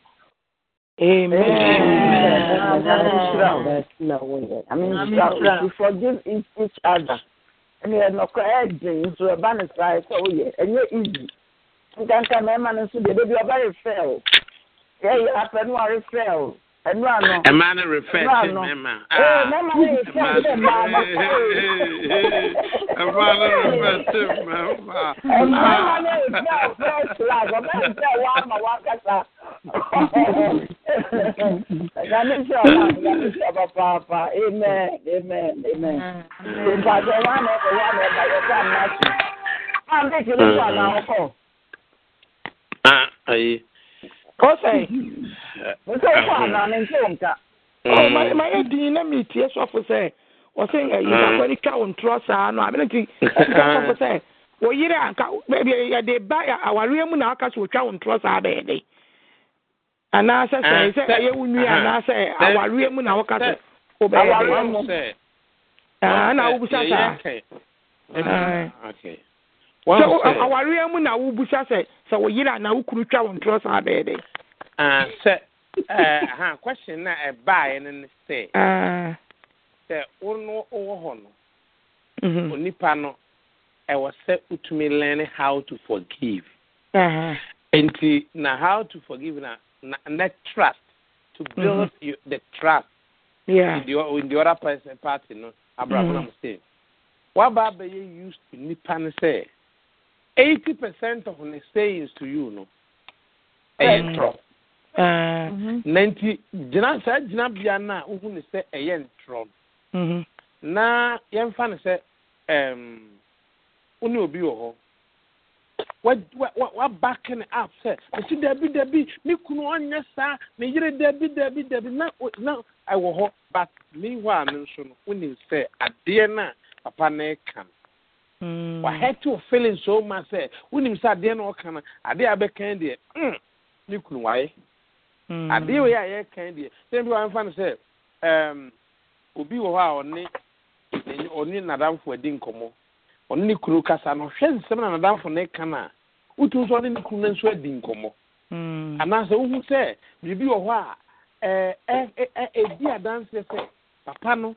Amen. Amen. Amen. Amen. I mean, you forgive each other. And you know, correcting to a banner side, so yeah, and you're easy. You can't come, man, and so they are very fair yɛyɛ apɛ no a refrɛ o ɛnura no ɛma no refrɛ ti mɛma aa mɛma no yɛ fɛ sɛ mmaa no ɛma no refrɛ ti mɛma ɛma no yɛ fɛ fɛ flag ɔbɛ n fɛ wa ama wa kasa ɛgami sɛ ɔba ɛgami sɛ ɔba paapa amen amen amen mpadzɔ wa na ɛfɛ wa na ɛba yɛ fɛ ama si ɔn bɛ kiri fɔ ana ɔkɔ. ayi. kɔsɛn sɛ wokɔ anaa ne nkyɛ wɔ nka mayɛ din na metie sɔfo sɛ ɔse yidakɔre twa wo ntorɔ saa no amene nti ɛka sɔfo sɛ yɛde mu na aka sɛ wo ntorɔ saa anaasɛ sɛ sɛ ɛyɛ wo nwi anaasɛ awareɛ mu na woka sɛ na wobusa saa Uh, awareɛ mu na wobusa sɛ sɛ wo na wokunu twa wo ntorɔ saa bɛɛ dɛ ah, sɛ eh, ha question na ɛbaeɛ no ne sɛ ah. sɛ wo no wowɔ hɔ no mm-hmm. onipa no ɛwɔ sɛ wotumi learn how to forgive uh-huh. nti na how to forgive na na, na trust to build mm-hmm. you, the trust yeah. in, the, in the other person party no abraham mm-hmm. na mo say waba abɛyɛ used to nipa no sɛ 80% of the sayings to you no ɛyɛ eh. eh. mm-hmm. ntorɔ na nti gyina saa gyinabea no a wohu ne sɛ eh, ɛyɛ ntorɔ no mm-hmm. na yɛmfa no sɛ wo obi wɔ hɔ wabake ne app sɛ ɛsi dabi dabi me kunu ɔnyɛ saa yere dabi dabi dabi na na ɛwɔ hɔ but me hɔ nso no wonim sɛ adeɛ no a papa ɛka no Mm. wahɛte wo feeling so ma sɛ wonim sɛ adeɛ na ɔka no adeɛ a bɛkan deɛ ne kunu waye adeɛ wei a yɛkan deɛ sɛ bi wamfa no sɛ obi wɔ hɔ a ɔne ɔne nadamfo adi nkɔmmɔ ɔne ne kunu kasa no hwɛ nsɛm na nadamfo ne ka no a wotum sɛ ɔne ne kunu no nso adi nkɔmmɔ hmm. anaasɛ wohu sɛ biribi wɔ hɔ a ɛdi adanseɛ sɛ papa no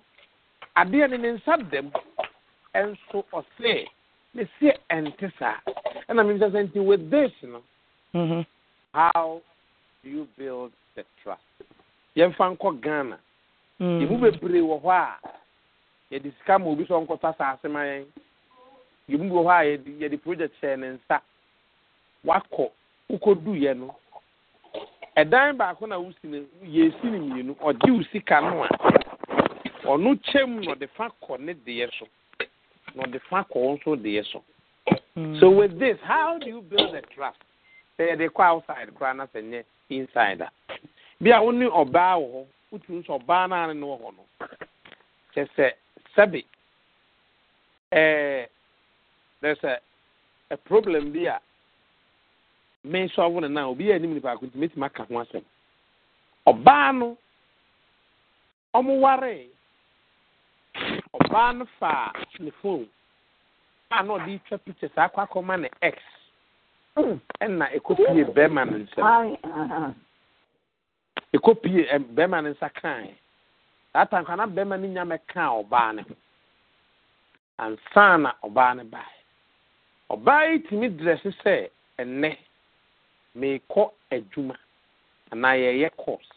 adeɛ ne ne nsa dɛm say, ɔse us see ɛnte saa ɛna mi nkyɛn sɛ nti with this no. mm mm-hmm. how do you build the trust yɛmfa nkɔ ghana mm-hmm. yɛmu bebree wɔ hɔ a yɛde sika ma obi sɛ ɔnkɔtɔ asase ma yɛn yɛmu bi wɔ hɔ a yɛde project hyɛ ne nsa wakɔ wokɔduyɛ no ɛdan baako na wosi no yɛsi no mmienu ɔgye wo sika no a ɔno kyɛm na ɔde fa kɔ ne deɛ so na the fa kɔ wo so so with this how do you build a trust say yɛde kɔ outside koraa na sɛ nyɛ inside a bia wo ne ɔbaa wɔ hɔ wotumi sɛ no ane ne wɔ hɔ no kyɛ there's a, a problem bi a mesɔfo no na obi yɛ anim nipa ko nti mɛtumi aka ho asɛm ɔbaa no ɔmo waree ọbaa no fa ne phone a na ɔde twa picture saa akọ akɔma ne x hmm, na ekopie bɛrima ne nsam ekopie bɛrima ne nsa kan saa tanka na bɛrima ne nyame kan ɔbaa ne ho ansa na ɔbaa ne bae ọbaa yi tumi drɛse sɛ ɛnɛ meekɔ adwuma anaa yɛyɛ course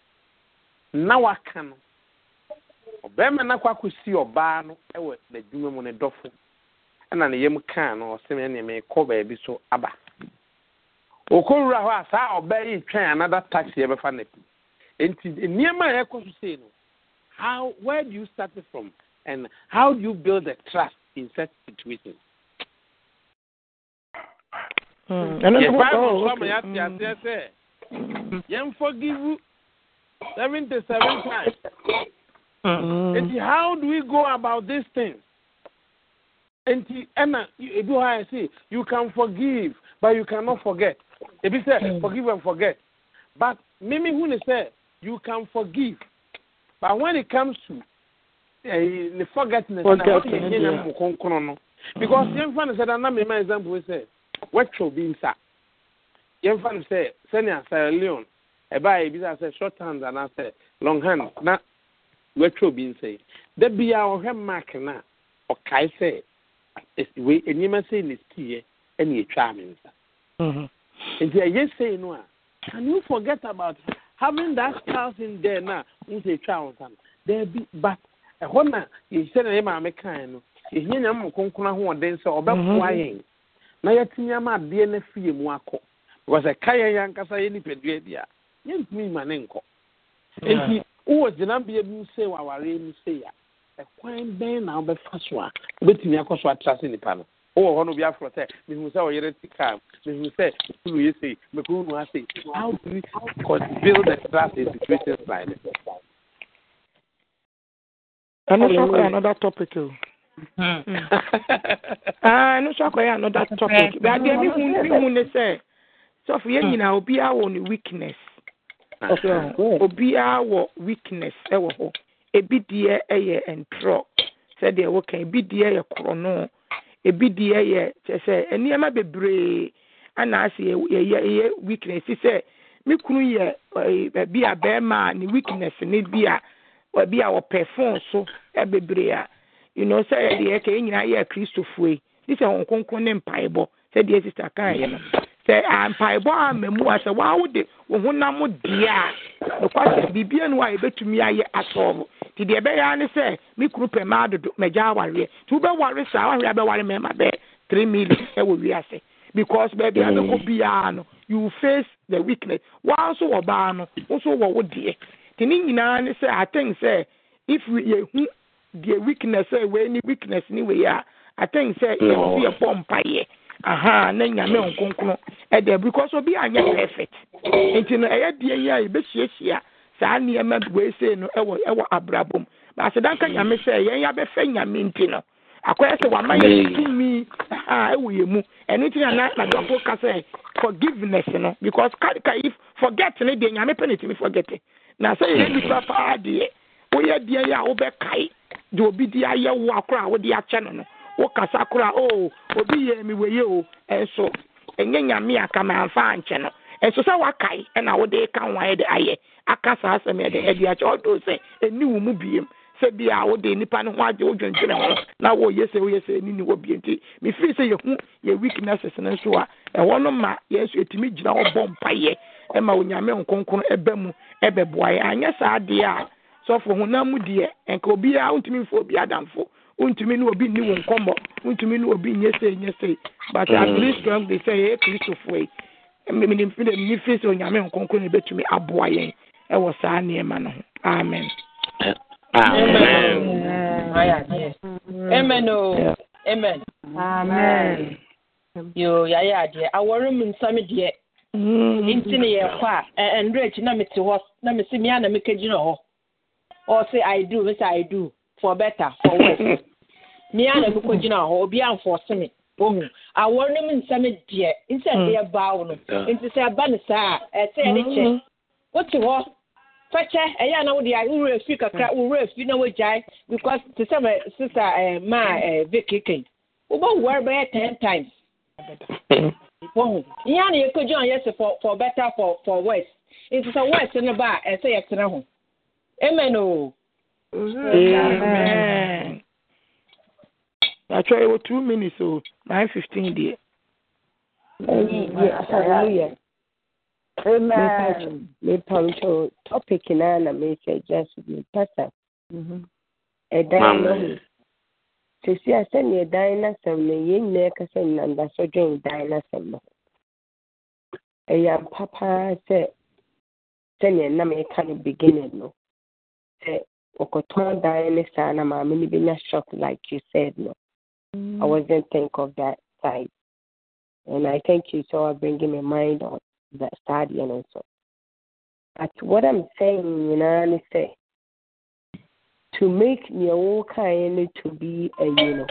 na waka no ɔbarima no akɔ akɔsi ɔbaa no wɔ n'adwuma mu ne ɛna ne yam kaa no ɔsɛm ɛne meekɔ baabi so aba ɔkɔwura hɔ a saa ɔbaa yi twɛn anada taxi yɛbɛfa no pi nti nneɛma a yɛkɔ so sei no how where do you start from and how do you build a trust in such situations yɛmfɔ give seventy seven times Mm. how do we go about these things? And ɛna do I see you can forgive but you cannot forget. Ebi sɛ mm. forgive and forget but mimi hu said you can forgive but when it comes to ɛɛ eh, ne because yɛn fa ni sɛ Mimi example ma said sɛ wɔtwɛw bi nsa yɛn fa ni sɛ sɛnea Sierra Leone eh, ɛbaa yɛ bi sɛ short hand anaasɛ long hand na wɔatwa obi nsɛe da bia ɔhwɛ mark no a ɔkae sɛ eh, wei nneɛma sei na siiɛ ɛne ɛtwaa me nsa mm-hmm. nti ɛyɛ sei no a can you forget about having that thousand there na n sɛ ɛtwaa wo nsa no daabi but ɛhɔ na yɛhyɛ na yɛ maame kae no yɛhia nyama mu kronkron ahoɔden sɛ ɔbɛboa mm-hmm. yɛn na yɛtumi ama adeɛ no afie mu akɔ because ɛka yɛn yɛ ankasa yɛ nipadua bi a yɛntumi ma ne nkɔ nti wowɔ gyinabea bi mu wɔ awareɛ mu sei a ɛkwan bɛn na wobɛfa so a wobɛtumi akɔ so atra se nnipa no wowɔ hɔ no obi aforɔ sɛ mehu sɛ ɔyere ti kaa mehu sɛ kunu yɛ sei mekunu nu asei how do we build the trust in situations like this ɛno so akɔyɛ another topic o ɛno so akɔyɛ another topic but adeɛ mehu ne sɛ sɔfo yɛ nyinaa obiaa wɔ ne weakness obiara wɔ weakness ɛwɔ hɔ ebi deɛ ɛyɛ ntorɔ sɛdeɛ wɔka ebi deɛ yɛ korɔno ebi deɛ yɛ kyɛ sɛ nneɛma bebree ana ase yɛ yɛ yɛ weakness sɛ me kunu yɛ ɛɛ bi a bɛrima a ne weakness ne bi a ɛbi a ɔpɛ phone so ɛbebree a you know sɛ yɛ deɛ yɛ ka yɛ nyinaa yɛ kristofoe ne sɛ wɔn konko ne mpaebɔ sɛdeɛ sista kan yɛ no. sɛ mpaebɔ a mmamu a sɛ waa wode wo honam deɛ a nokwasɛ biribia no a yɛbɛtumi ayɛ asɔɔbo nti deɛ ɛbɛyɛ ne sɛ me kuru pɛ ma adodo magya awareɛ nti wobɛware saa wareɛ bɛware mmarima bɛɛ three million ɛwɔ wiase because baabi a bɛkɔ mm. biara no you face the weakness wa nso wɔ baa no wo nso wɔ wo deɛ nti ne nyinaa ne sɛ if yɛhu deɛ weakness a wei ne weakness ne wei a sɛ mm. yɛbɔ aha na nyame nkonkron ɛdɛ because obi anyɛ perfect nti no ɛyɛ die yi a yɛbɛhyiahyia saa nneɛma weesei no ɛwɔ ɛwɔ abrabɔ mu baasi danka nyame sɛ yɛn yabɛfɛ nyame nti no akɔyɛ sɛ wama yɛ tumi aha ɛwɔ yɛn mu ɛno ti na na nadɔfo yɛ forgiveness no because ka ka if forget ne deɛ nyame pɛ ne tumi forget na sɛ yɛn nipa paa deɛ woyɛ deɛ yɛ a wobɛkae deɛ obi de ayɛ wo akora a wode akyɛ no no. wokasa koraa o oh, obi yɛ mi wɔ yie o ɛnso ɛnyɛ nyame aka ma nfa nkyɛn no ɛnso sɛ wakae ɛna wode ka ho ayɛ de ayɛ aka saa asɛm yɛ de ɛde akyɛ ɔdo sɛ ɛni wo mu biem sɛ bi a wode nipa no ho agye wodwentwene ho na wɔyɛ sɛ woyɛ sɛ ɛni ni wɔ bie nti mefiri sɛ yɛhu yɛ weaknesses no nso a ɛhɔ no ma yɛn nso ɛtumi gyina hɔ bɔ mpayɛ ɛma onyame nkonkron ɛbɛ mu ɛbɛboa yɛ anyɛ saa adeɛ a sɔfo honam mu deɛ nka obiara wontumi mfo obi adamfo wontumi ne obi nni wo nkɔmmɔ wontumi ne obi nyɛ sei nyɛ sei but at mm. least strong de sɛ yɛyɛ kristofoɔ yi menimfi dɛ menni firi sɛ onyame nkonkro ne bɛtumi aboa yɛn ɛwɔ saa nneɛma no ho amen amen o amen amen yo yɛayɛ adeɛ awɔre mu nsɛm deɛ mm. nti ne yɛkɔ a ɛnderɛ e, e, akyi na mete hɔ na mese mea na mekɛgyina hɔ ɔse i do mesɛ i do for better for worse me a na mi kɔ gyina hɔ obi anfɔ simi ohun awɔre ne mu nsɛm deɛ nsɛm deɛ baa wo no nti sɛ ɛba ne saa ɛsɛ yɛ ne kyɛ wote hɔ fɛkyɛ ɛyɛ anaw deɛ wura efi kakra wura efi na Jai, because te sɛ uh, sister ɛɛ maa ɛɛ vicky kɛn wobɔ wɔre bɛyɛ ten times ohun ihe a na yɛ kɔ for for better for for worse nti sɛ worse ne ba ɛsɛ yɛ tena ho amen o. Oh. Amen. I try over two minutes, so nine fifteen dear. Hallelujah. Amen. mepa nso topic naa na mehyɛ gya so mepasa ɛdan no ho sesi a sɛnea dan n'asɛm no yɛn nyinaa kasa nam daso dwen dan n'asɛm no ɛyɛ ampa paa sɛ sɛnea nam yɛka no beginning no sɛ Okoton Diane Sana Mamini Bina shocked like you said, no. Mm. I wasn't think of that side. And I thank you so for bringing my mind on that side and also. But what I'm saying, you know, I say to make your kind to be a you know.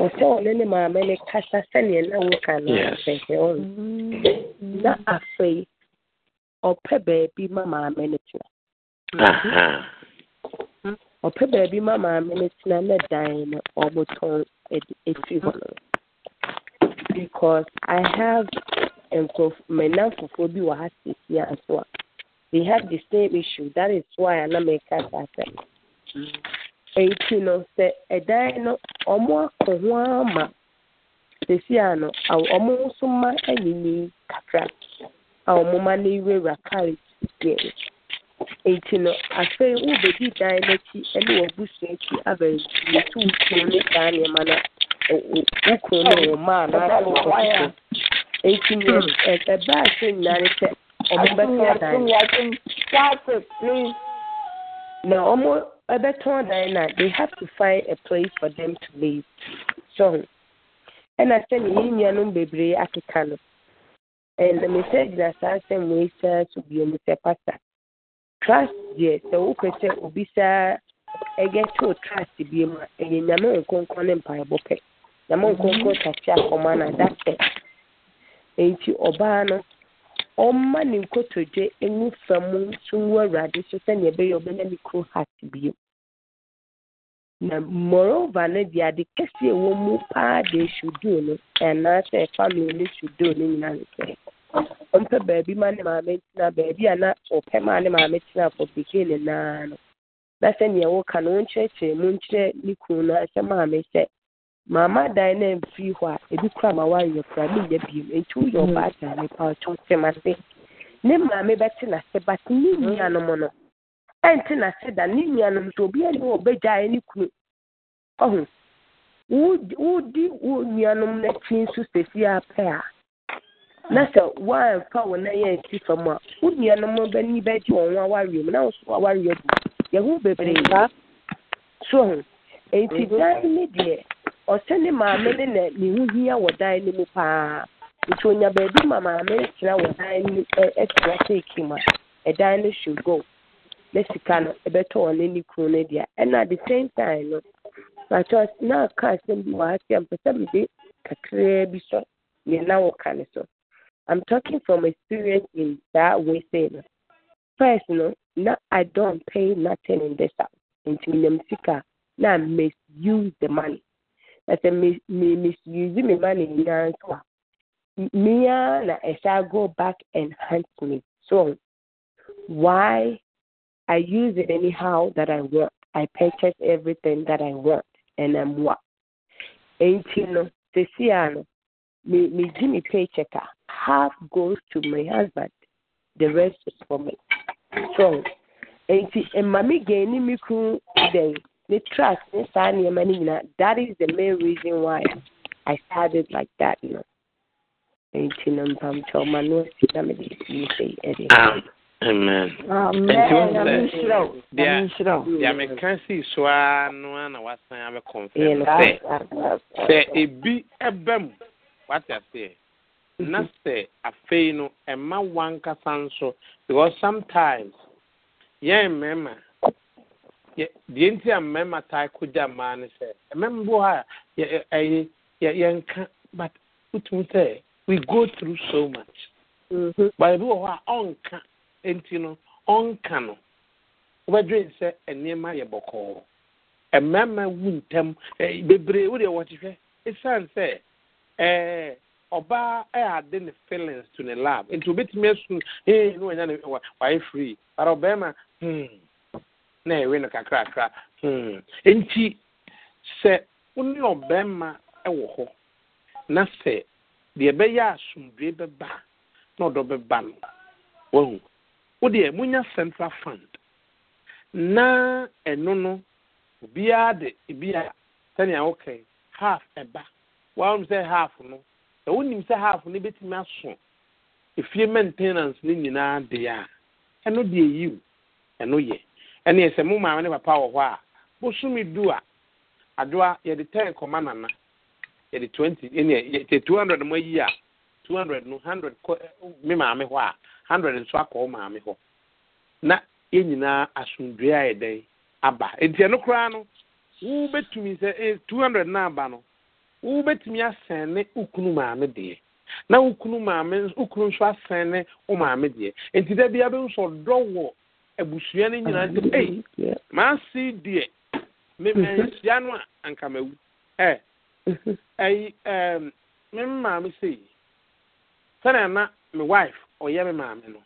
ɔsɛ ɔno ne maame ne kasa sɛneɛ na woka no sɛhɛ ɔno na afei ɔpɛ baabi ma maame no tena ɔpɛ baabi ma maame no tena ne dan no ɔmotɔn ɛfiri hɔ no because i have nkurɔfo mmenamfofoɔ bi wɔ ha seesia nso a they have the same issue that is why ana meka saa sɛ ɛnti no sɛ ɛdan no ɔmo akɔ ho ama seesia no ɔmo nso ma ɛyɛ yie kakra a ɔmo ma no ewurawura kaa ɛsi deɛ nti no afei wobɛdi dan n'akyi ne wɔbusua akyi abɛnti tu wo kuro ne saa nneɛma no wo kuro no maa anaasɛ ɔkokɔ nti neɛ ɛbɛ a sɛ nyinaa ne sɛ ɔmo bɛtɔn dan na ɔmo ɛbɛtɔn dan na they have to find a place for them to live so ɛna sɛne yɛ nuanom bebree akeka no ɛnna mesɛ gyina saa nsɛm wei sɛ so bio mu sɛ pastor trust deɛ sɛ wopɛ sɛ obi saa ɛyɛ too trust bie mu a ɛyɛ nyame nkonkɔ ne mpaebɔ pɛ nyame nkonkɔ tase akɔma no adasɛ nti ɔbaa no ɔmma ne nkotodwe ngu fam nso ngu awurade so sɛnea ɛbɛyɛ ɔbɛnya ne kuro heart na moreover no deɛ ade kɛseɛ mu paa sudo no family sudo no nyinaa ɔmpɛ baabi ma ne maame ntena baabi a na ɔpɛ ma ne maame tena fɔ pikee ne naa no na sɛ nea woka no wonkyerɛkyerɛ mu nkyerɛ ne kunu no sɛ maame sɛ maama dan na amfiri hɔ a ebi kura ma wa woanyɛ kora menyɛ bio nti woyɛ ɔbaatan mm. ne pa ɔtwo tem ase ne maame bɛte n'ase but ne mm. nuanom no ɛnte n'ase da ne nuanom so obiara ne ɔbɛgyae ne kunu ɔho wodi wo nuanom no akyi nso sesi apɛ a na sɛ woamfa wo na yɛ nsi fam a wo nuanom bani bɛgye wɔn ho awareɛ mu na wo so awareɛ bu yɛho bebree so ho enti dan ne deɛ ɔsɛ ne maame ne na ne ho hia wɔ dan no mu paa nti onya baabi ma maame tena wɔ dan no ɛtena seeki mu a ɛdan no should go na sika no ɛbɛtɔ wɔn ne kunu no deɛ ɛna the same time no na aka asɛm bi wɔ ha sɛ mpɛ sɛ mede kakraa bi sɔ nea na wɔka ne so I'm talking from experience in that way saying first you no know, now I don't pay nothing in this house. Nti minim now I misuse the money. That's a me misuse my money nyinaa nso Me, mia na shall go back and hunt me. So why I use it anyhow that I want. I purchase everything that I want and I'm what. you no, sisi me me di me paycheck a. Ah half goes to my husband, the rest is for me. So, enti mami gani mi kun den the trust the saa nneɛma no nyinaa that is the main reason why I started like that no. Enti na mpampɛ ɔma Amen. Amen. na mede sie sei ɛde. Amen. Deɛ meka sii so a no a na wasan abɛkɔmfɛ sɛ sɛ ebi ɛbɛ mu wate aseɛ Mm-hmm. na sɛ afei no ɛma wankasa nso because sometimes yɛn mmarima deɛ nti a mmarima taa kogya mmaa no sɛ mmarima bi wɔ hɔ a ɛyɛ yɛnka but wotum sɛ we go through so much mm-hmm. but ebi wɔ hɔ a ɔnka nti no ɔnka no wɔbɛdwe sɛ nneɛma yɛ bɔkɔɔ mmarima wu ntɛm bebree wodeɛ wɔtehwɛ ɛsiane sɛ ɛɛ. I ɛyade ne feelings to ne lab nti obetumi esun ee ne wanya ne wa free ara hmm na ɛwe no hmm nti sɛ wone ɔbɛrima ɛwɔ hɔ na sɛ deɛ ɛbɛyɛ asomdue bɛba na ɔdɔ bɛba no wahu wodeɛ central fund na ɛno no obiara de ebi a sɛnea wokae half ɛba wɔn sɛ half no sɛ wonim sɛ half no bɛtumi aso efie maintenance nyinaa a ɛno deɛ yiw ɛno yɛ ɛne sɛ mo maame ne papa wɔ hɔ a bosome du a adoa yɛde ten kɔma nana yɛde twenty ɛne yɛ two hundred mo ayi a two hundred no hundred kɔ maame hɔ a hundred nso akɔ wo maame hɔ na yɛn nyinaa a yɛ aba koraa no wo sɛ two hundred na aba no wobɛtumi asɛn ne wo kunu maame deɛ na wo maame wo nso asɛn ne wo maame deɛ nti da bia bi nso dɔ wɔ abusua no nyinaa nti ei maase deɛ memanhyia no a anka mawu ɛ mhm. ɛyi ɛɛm me maame sei sɛnea na me wife ɔyɛ me maame no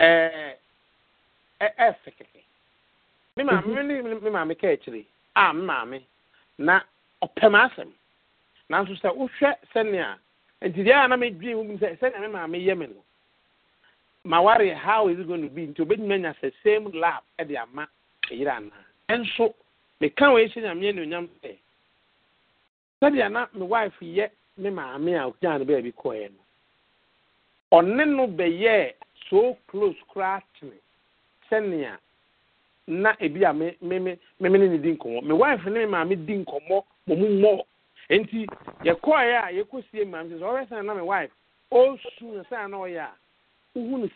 ɛɛ ɛɛ sɛkɛkɛ me maame mhm. me ne me maame kaa a me maame na ɔpɛ m asɛm nanso sɛ wohwɛ sɛnea ɛnti deɛɛ na medwee wo mi sɛ sɛnea memaameyɛ me no mawareɛ how is gointo be nti obɛnyima nya sɛ same lap ɛde ama yere anaa ɛnso meka wɔ ɛhyɛ nyameɛ ne onyam sɛ sɛdea na me wife yɛ me maame a ogya no bɛa bi kɔɛ no ɔne no bɛyɛɛ soo clos koraa tene sɛnea na ebi a mme me ne ne di nkɔmmɔ me wife ne memaame di nkɔmmɔ wɔn mu mmɔ nti yɛkɔɔɛ a yɛkɔsie maame sɛ ɔbɛ na my wife ɔsu na sɛn na ɔyɛ a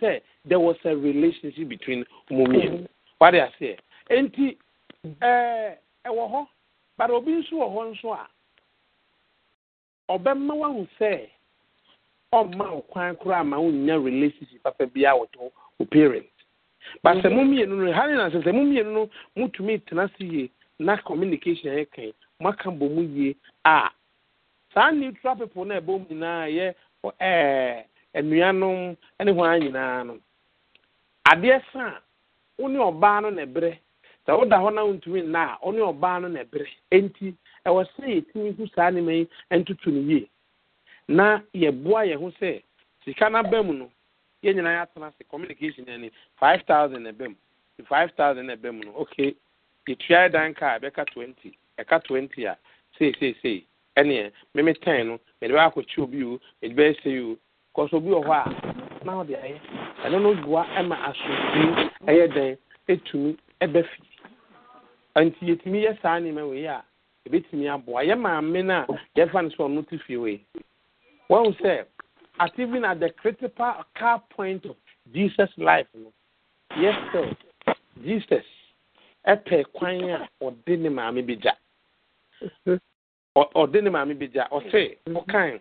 sɛ there was a relationship between ụmụ mmienu mhm. wade aseɛ nti mhm. ɛɛ ɛwɔ hɔ but obi nso wɔ nso a ɔbɛma wahu sɛ ɔmma wo koraa ma relationship papa bi a but sɛ mo mhm. mmienu no na sɛ mo mmienu no tena na communication yɛ maka mbọ yie a saa neutral people na ɛbɔ mu nyinaa yɛ ɛɛ nnuanom ne nyinaa no adeɛ wo ne ɔbaa no na ɛbrɛ sɛ woda hɔ na wontumi nna a wo ne ɔbaa no na ɛbrɛ enti ɛwɔ sɛ yɛtumi hu saa nneɛma yi ntoto no yie na yɛboa yɛn ho sɛ sika no aba mu no nyinaa yɛatena ase communication ani five thousand na ɛba five thousand na ɛba mu no okay yɛtua yɛ dan kaa twenty ɛka twenty a seeseesei ɛneɛ meme ten no mede bɛyɛ akɔkye obi o mede bɛyɛ sɛ o kɔsɛ obi wɔ hɔ a na ɔde ayɛ ɛno no boa ma asomdwee ɛyɛ dɛn ɛtumi ɛbɛ fi nti yɛtumi yɛ saa nneɛma wei a ɛbɛtumi aboa yɛ maame no a yɛfa no sɛ ɔno te fie wei wɔhu sɛ at even at the critical car point of jesus life no yes sir jesus ɛpɛ kwan a ɔde ne maame bi gya ɔde ne maame bi gya ɔse mm-hmm. ɔkan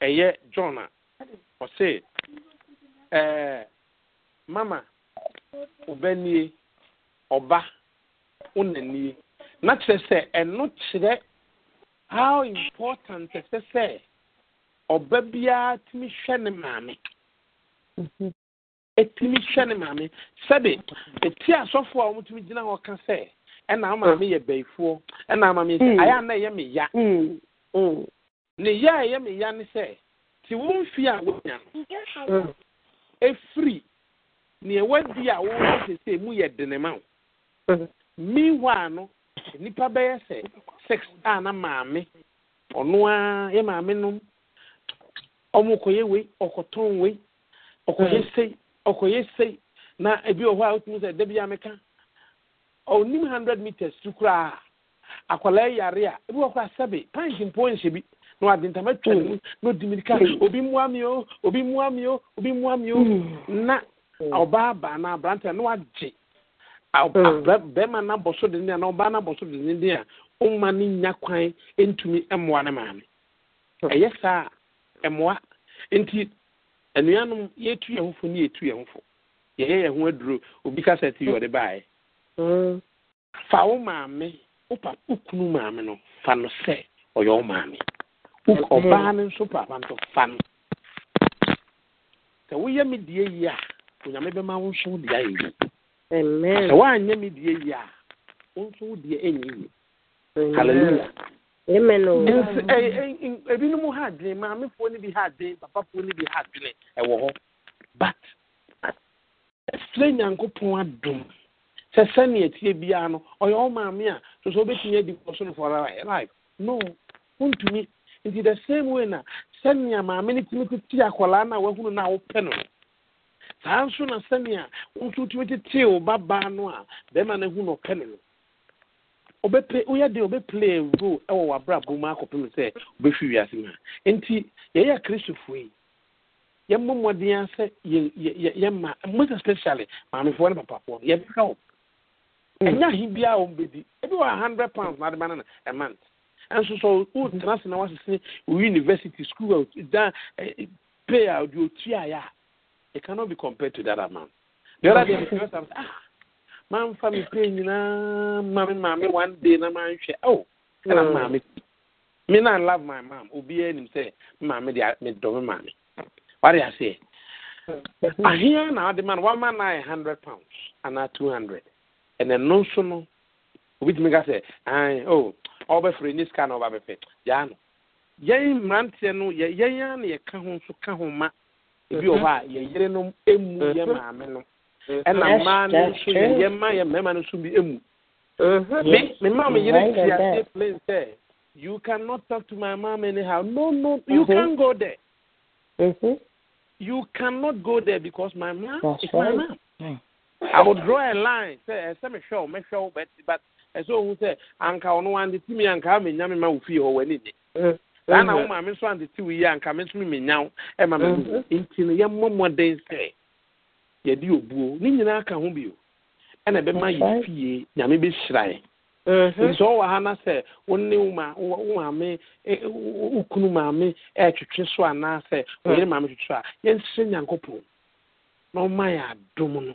ɛyɛ john a ɔse ɛɛ mama ɔbɛnie ɔba ɔnanie na kyerɛ sɛ ɛno kyerɛ how important ɛsɛ sɛ ɔba biara tumi hwɛ ne maame mm-hmm. ɛtumi hwɛ ne maame sɛde ɛti asɔfoɔ a wɔn tumi gyina hɔ ka sɛ. ɛna ama mi mm. yɛ bɛyifoɔ ɛna ama mi sɛ mm. ayɛ ana ɛyɛ mi ya mm. ne ya a mi ya ne sɛ te wɔn fi a wɔnya no efiri nea di a wɔwɔ sese mu yɛ denema o meanwhile no nipa bɛyɛ sɛ sex a na maame ɔno ara yɛ maame nom ɔmo kɔyɛ wei ɔkɔtɔn wei ɔkɔyɛ sei ɔkɔyɛ sei na ebi wɔ hɔ a wotumi sɛ dabi ameka. ɔnim hundred meters tu koraa akwadaa yare a ebi wɔ kɔ asabe panki mpo nhyɛ bi na wade ntama twa ne mu na odi mirika obi mua mi o obi mua mi o obi mua mi o na ɔbaa baa na aberante na wagye bɛrima na bɔso de ne na ɔbaa na bɔso de ne de a ɔma ne nya kwan ntumi mmoa ne maame ɛyɛ saa mmoa nti anuanom yɛtu yɛn ho fo ne yɛtu yɛn ho fo yɛyɛ yɛn ho aduro obi kasa ti yɛ ɔde baeɛ. Mm. fa wo maame wo papa wo kunu maame no fa no sɛ ɔyɛ wo maame ɔbaa no nso papa nto fa no sɛ woyɛ me die yi a onyame bɛma wo nso wo deɛ ayɛ yi sɛ woanyɛ me die yi a wo nso wo deɛ ɛnyɛ yi hallelujah oh. ebinom ha adwene maamefoɔ no bi ha adwene papafoɔ no bi ha adwene ɛwɔ hɔ but ɛsrɛ nyankopɔn adom sɛ sɛnea tie biara no ɔyɛ wo maame a so sɛ wobɛtumi adi wɔ so no for life no wontumi nti the same way na sɛnea maame no tumi tete akwaraa no a wahunu no a wopɛ no saa nso na sɛnea wo nso wotumi tetee wo babaa no a bɛrima no ahu no ɔpɛ no no obɛpɛ woyɛ de obɛplay a role ɛwɔ w'abrabɔ mu akɔpem sɛ wobɛhwi wiase mu a nti yɛyɛ akristofoɔ yi yɛmmɔ mmɔden a sɛ yɛma most especially maamefoɔ no papafoɔ no yɛbɛka wɔ Mm. ɛnya he biara wɔn bɛdi ebi wɔ hundred pounds na adeba nana a month ɛnso so o mm. tena se na wasese o university school dan pay a di o tia ya it cannot be compared to that amount the other day the first time ah maa nfa mi pay nyinaa maame maame one day na maa nhwɛ ɛwɔ oh, ɛna mm. maame me na love my mom obiara nim sɛ maame de me dɔm maame wade aseɛ aheɛ na ɔde ma One man na a hundred pounds anaa two hundred. ɛnɛ no nso no obi tumi ka sɛ ɛn o ɔbɛfiri ne sika na ɔba bɛfɛ no yɛn mmeranteɛ no yɛ yɛn ma ebi wɔ hɔ emu mm-hmm. maame no ɛna mm-hmm. mmaa no nso yɛ mma mmarima bi emu maa mm-hmm. mi You I will draw a line. Say, eh, say me show, me show, but but I eh, saw who say anka ono andi timi anka me nyame ma ofi ho wani ni. Saa na woma so andi ti wi anka me so me nyaw e ma me du. Nti no ye den sɛ ye di obuo. Ni nyina ka ho bi o. Ɛna be ma ye fie nyame be hyiran. Mm-hmm. Nso ɔwɔ ha na sɛ wonne woma woma wokunu maame ɛtwetwe so anaasɛ oyere mm. maame twetwe a yɛnhyɛ nyankopɔn na ɔma yɛ adom no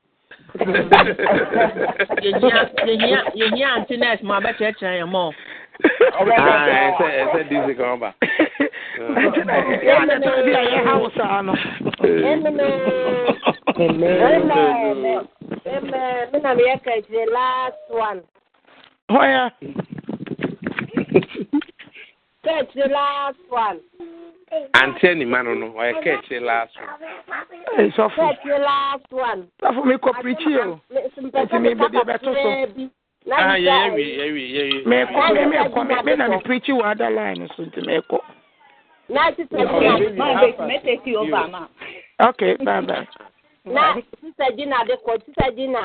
yɛhia ante nurse ma bɛkyerɛkyerɛ yɛ mɔ ɛsɛ dc Catch the last one. àǹtí ẹ̀ no, I catch the last one. ẹ Catch the last one. for me kọ preach you. Let me be the tó so. ah yeah, yeah, yeah, yeah. Me yẹ me mẹ me mi mẹ kọ mi bẹ́ẹ̀ na mi pirichi wà á dá láàyè so ntì mẹ kọ. láti tẹ̀sí máa bẹ mẹ́tẹ̀ẹ̀kì ọba àmà. ok bye bye. na sísẹ́ dinner. dẹ́kọ̀ sísẹ́ dínà.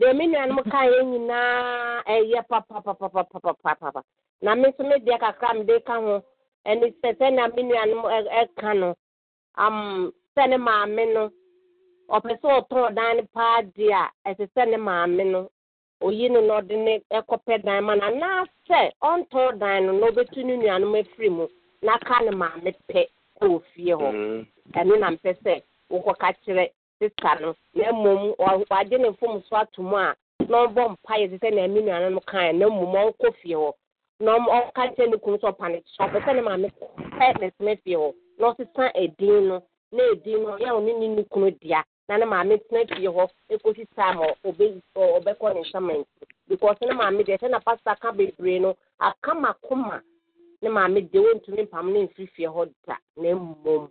deɛ me ka kaeɛ nyinaa ɛyɛ papapapapapapa na me nso me deɛ kakra mede ka ho ɛne sɛ sɛnea me nuanom ɛka no um sɛ ne maame no ɔpɛ sɛ ɔtɔn dan no paa deɛ a ɛsɛ sɛ ne maame no oyi no na ɔde ne ɛkɔpɛ dan ma na anaasɛ ɔntɔn dan no na ɔbɛtu ne nuanom afiri mu na ka ne maame pɛ ɛwɔ fie hɔ mm. ɛno na mpɛ sɛ wokɔka kyerɛ sista no na mmom wagye ne fom so ato mu a na ɔbɔ mpaeɛ te sɛ na ɛne nuano no kae na mmom ɔnkɔ fie hɔ na ɔka nkyɛ ne kunu sɛ ɔpa ne kyɛ ɔpɛ sɛ ne maame pɛ ne tena fie hɔ na ɔsesa edin no na edin no yɛ ɔne ne ne kunu dea na ne maame tena fie hɔ ekosi time ɔbɛkɔ ne nsaman because ne maame deɛ sɛ na pastor aka bebree no akamakoma ne maame deɛ wɔntumi mpam ne mfiri fie hɔ da na mmom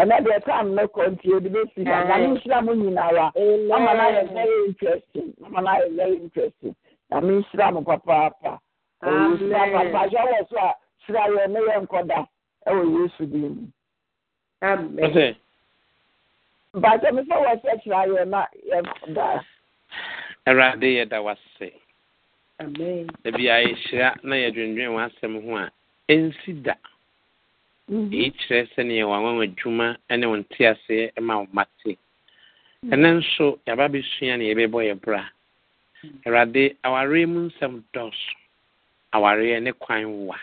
ɛnɛ deɛ time no kɔ nti bɛ si na mi nsira mu ama na yɛ very interesting ama na very interesting na mi nsira papaapa papa wɔ so a sira yɛ ne yɛ nkɔda ɛwɔ yesu mu. bàtà mi na da. da ebi a dwendwen a da. Mhm. eyi kyerɛ sɛneɛwɔ anwaw adwuma ne wɔ nteaseɛ ma wo mmate mhm. ɛne nso yɛaba bɛsua neɛ yɛbɛbɔ yɛ brɛ mhm. awurade awareɛ mu nsɛm dɔso awareɛ ne kwan wa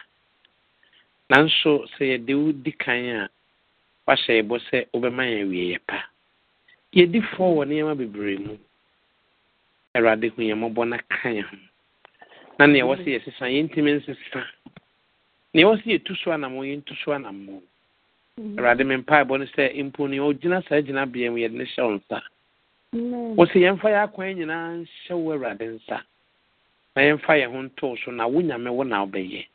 nanso sɛ yɛde wo di kane a wɔahyɛ yɛbɔ sɛ wobɛma yɛ awie yɛ pa yɛdi fɔ wɔ ne yɛma bebree mu awurade hunyamɔbɔ na ka na ho na neɛ wɔ se yɛ sesa yɛntimi nsesa nea ɛwɔ sɛ tu so anam yɛntu so anam mm-hmm. mu awurade me mpaebɔ no sɛ mpo nea ɔgyina saa bea mu yɛde ne hyɛ wo nsa wɔ sɛ yɛmfa yɛ akwan nyinaa nhyɛ wo awurade nsa na yɛmfa yɛn ho ntoo so na wo nyame wo na wobɛyɛ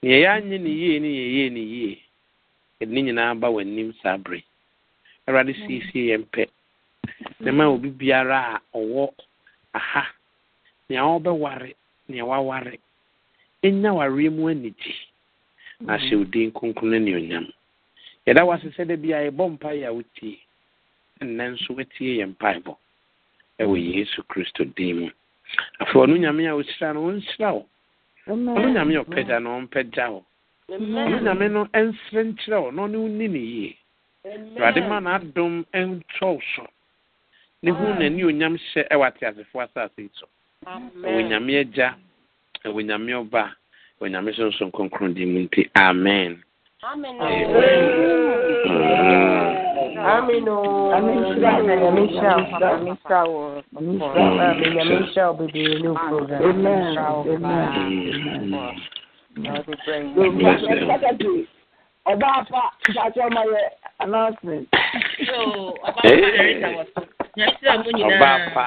nea yɛanyɛ ne yie ne yɛyɛ ne yie yɛde ne nyinaa ba w'anim saa bere awurade siesie yɛn pɛ na ma mm-hmm. obi biara a ɔwɔ aha nea ɔbɛware nea waware ɛnya wareɛ mu anigye mhm. na ahyɛ wo din kronkron no anuonyam yɛda wase sɛ da bia yɛbɔ mpaeɛ a wotie ɛnnɛ nso woatie yɛ mpaebɔ ɛwɔ mhm. yesu kristo din mu afei ɔno nyame a wohyira no wɔnhyira wo ɔno nyame a ɔpɛgya no ɔmpɛgya wo ɔno nyame no ɛnsere nkyerɛ wo na ɔne wo ni ne yie awurade ma n'adom ɛntwɔw so ne ho onyam hyɛ ɛwɔ ateasefoɔ asase yi so ɔwɔ nyame agya na onyame ɔba onyame sonson kronkron di mu nti amen ọba afa ṣaṣọ ọmọ yẹ announcement. ọba afa.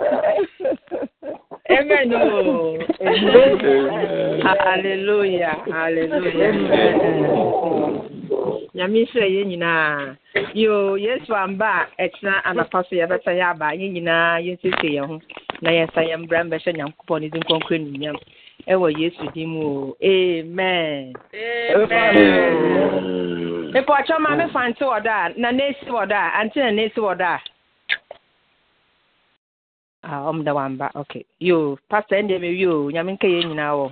Amen. Oh. Amen. Amen. Hallelujah. Hallelujah. Nyame sɛ yɛn nyinaa yo yesu amba a ɛkyena Ya so yɛbɛsa yɛ aba yɛn nyinaa yɛnsiesie ya ho na yɛnsa yɛn mbra mbɛhyɛ nyankopɔn ne din kɔnkɔn nnunyam ɛwɔ yesu di mu Amen. amen mepɛ ɔkyɛ ma mefa nte a na n'esi wɔ a ante na n'esi wɔ ɔm ah, dɛ wamba ok yo pastor ɛndeɛ mewie o nyame nka yɛ nyinaa wɔ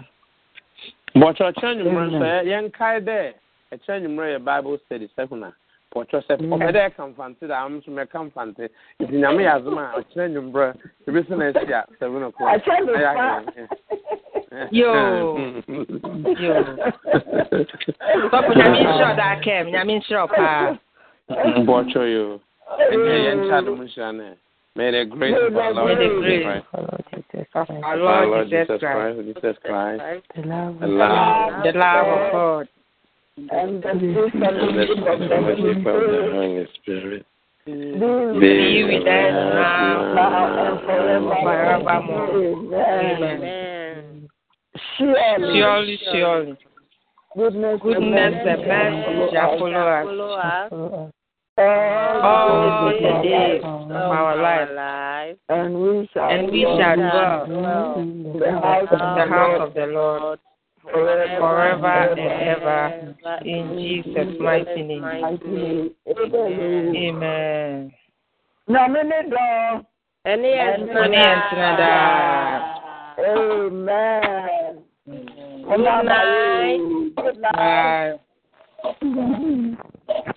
bɔkyɛ ɔkyerɛ nwummerɛ nso yɛnkae dɛ ɛkyerɛ nwummerɛ yɛ bible study sɛkuna pɔkyɛ sɛ ɔpɛ mm. dɛ ɛka mfante da am so mɛka mfante nti nyame yɛ adom a ɔkyerɛ nwummerɛ ɛbɛsi na asi a seven o'clock yo nyame nhyerɛ ɔda akɛm nyame nhyerɛ paa bɔkyɛ yo ɛnyɛ yɛnkyɛ adom nhyira no May the grace of our Lord Jesus Christ, our Lord Jesus Christ, Jesus Christ, the love, the love, of God, and the fellowship of the Holy Spirit. Be with us now, and forevermore. Amen. Surely, surely, goodness, goodness, the best shall follow us all the days of our life, and we shall, and we shall dwell in the house of the Lord forever and ever. In Jesus' mighty name. Amen. Amen. Good night. Good night. *laughs*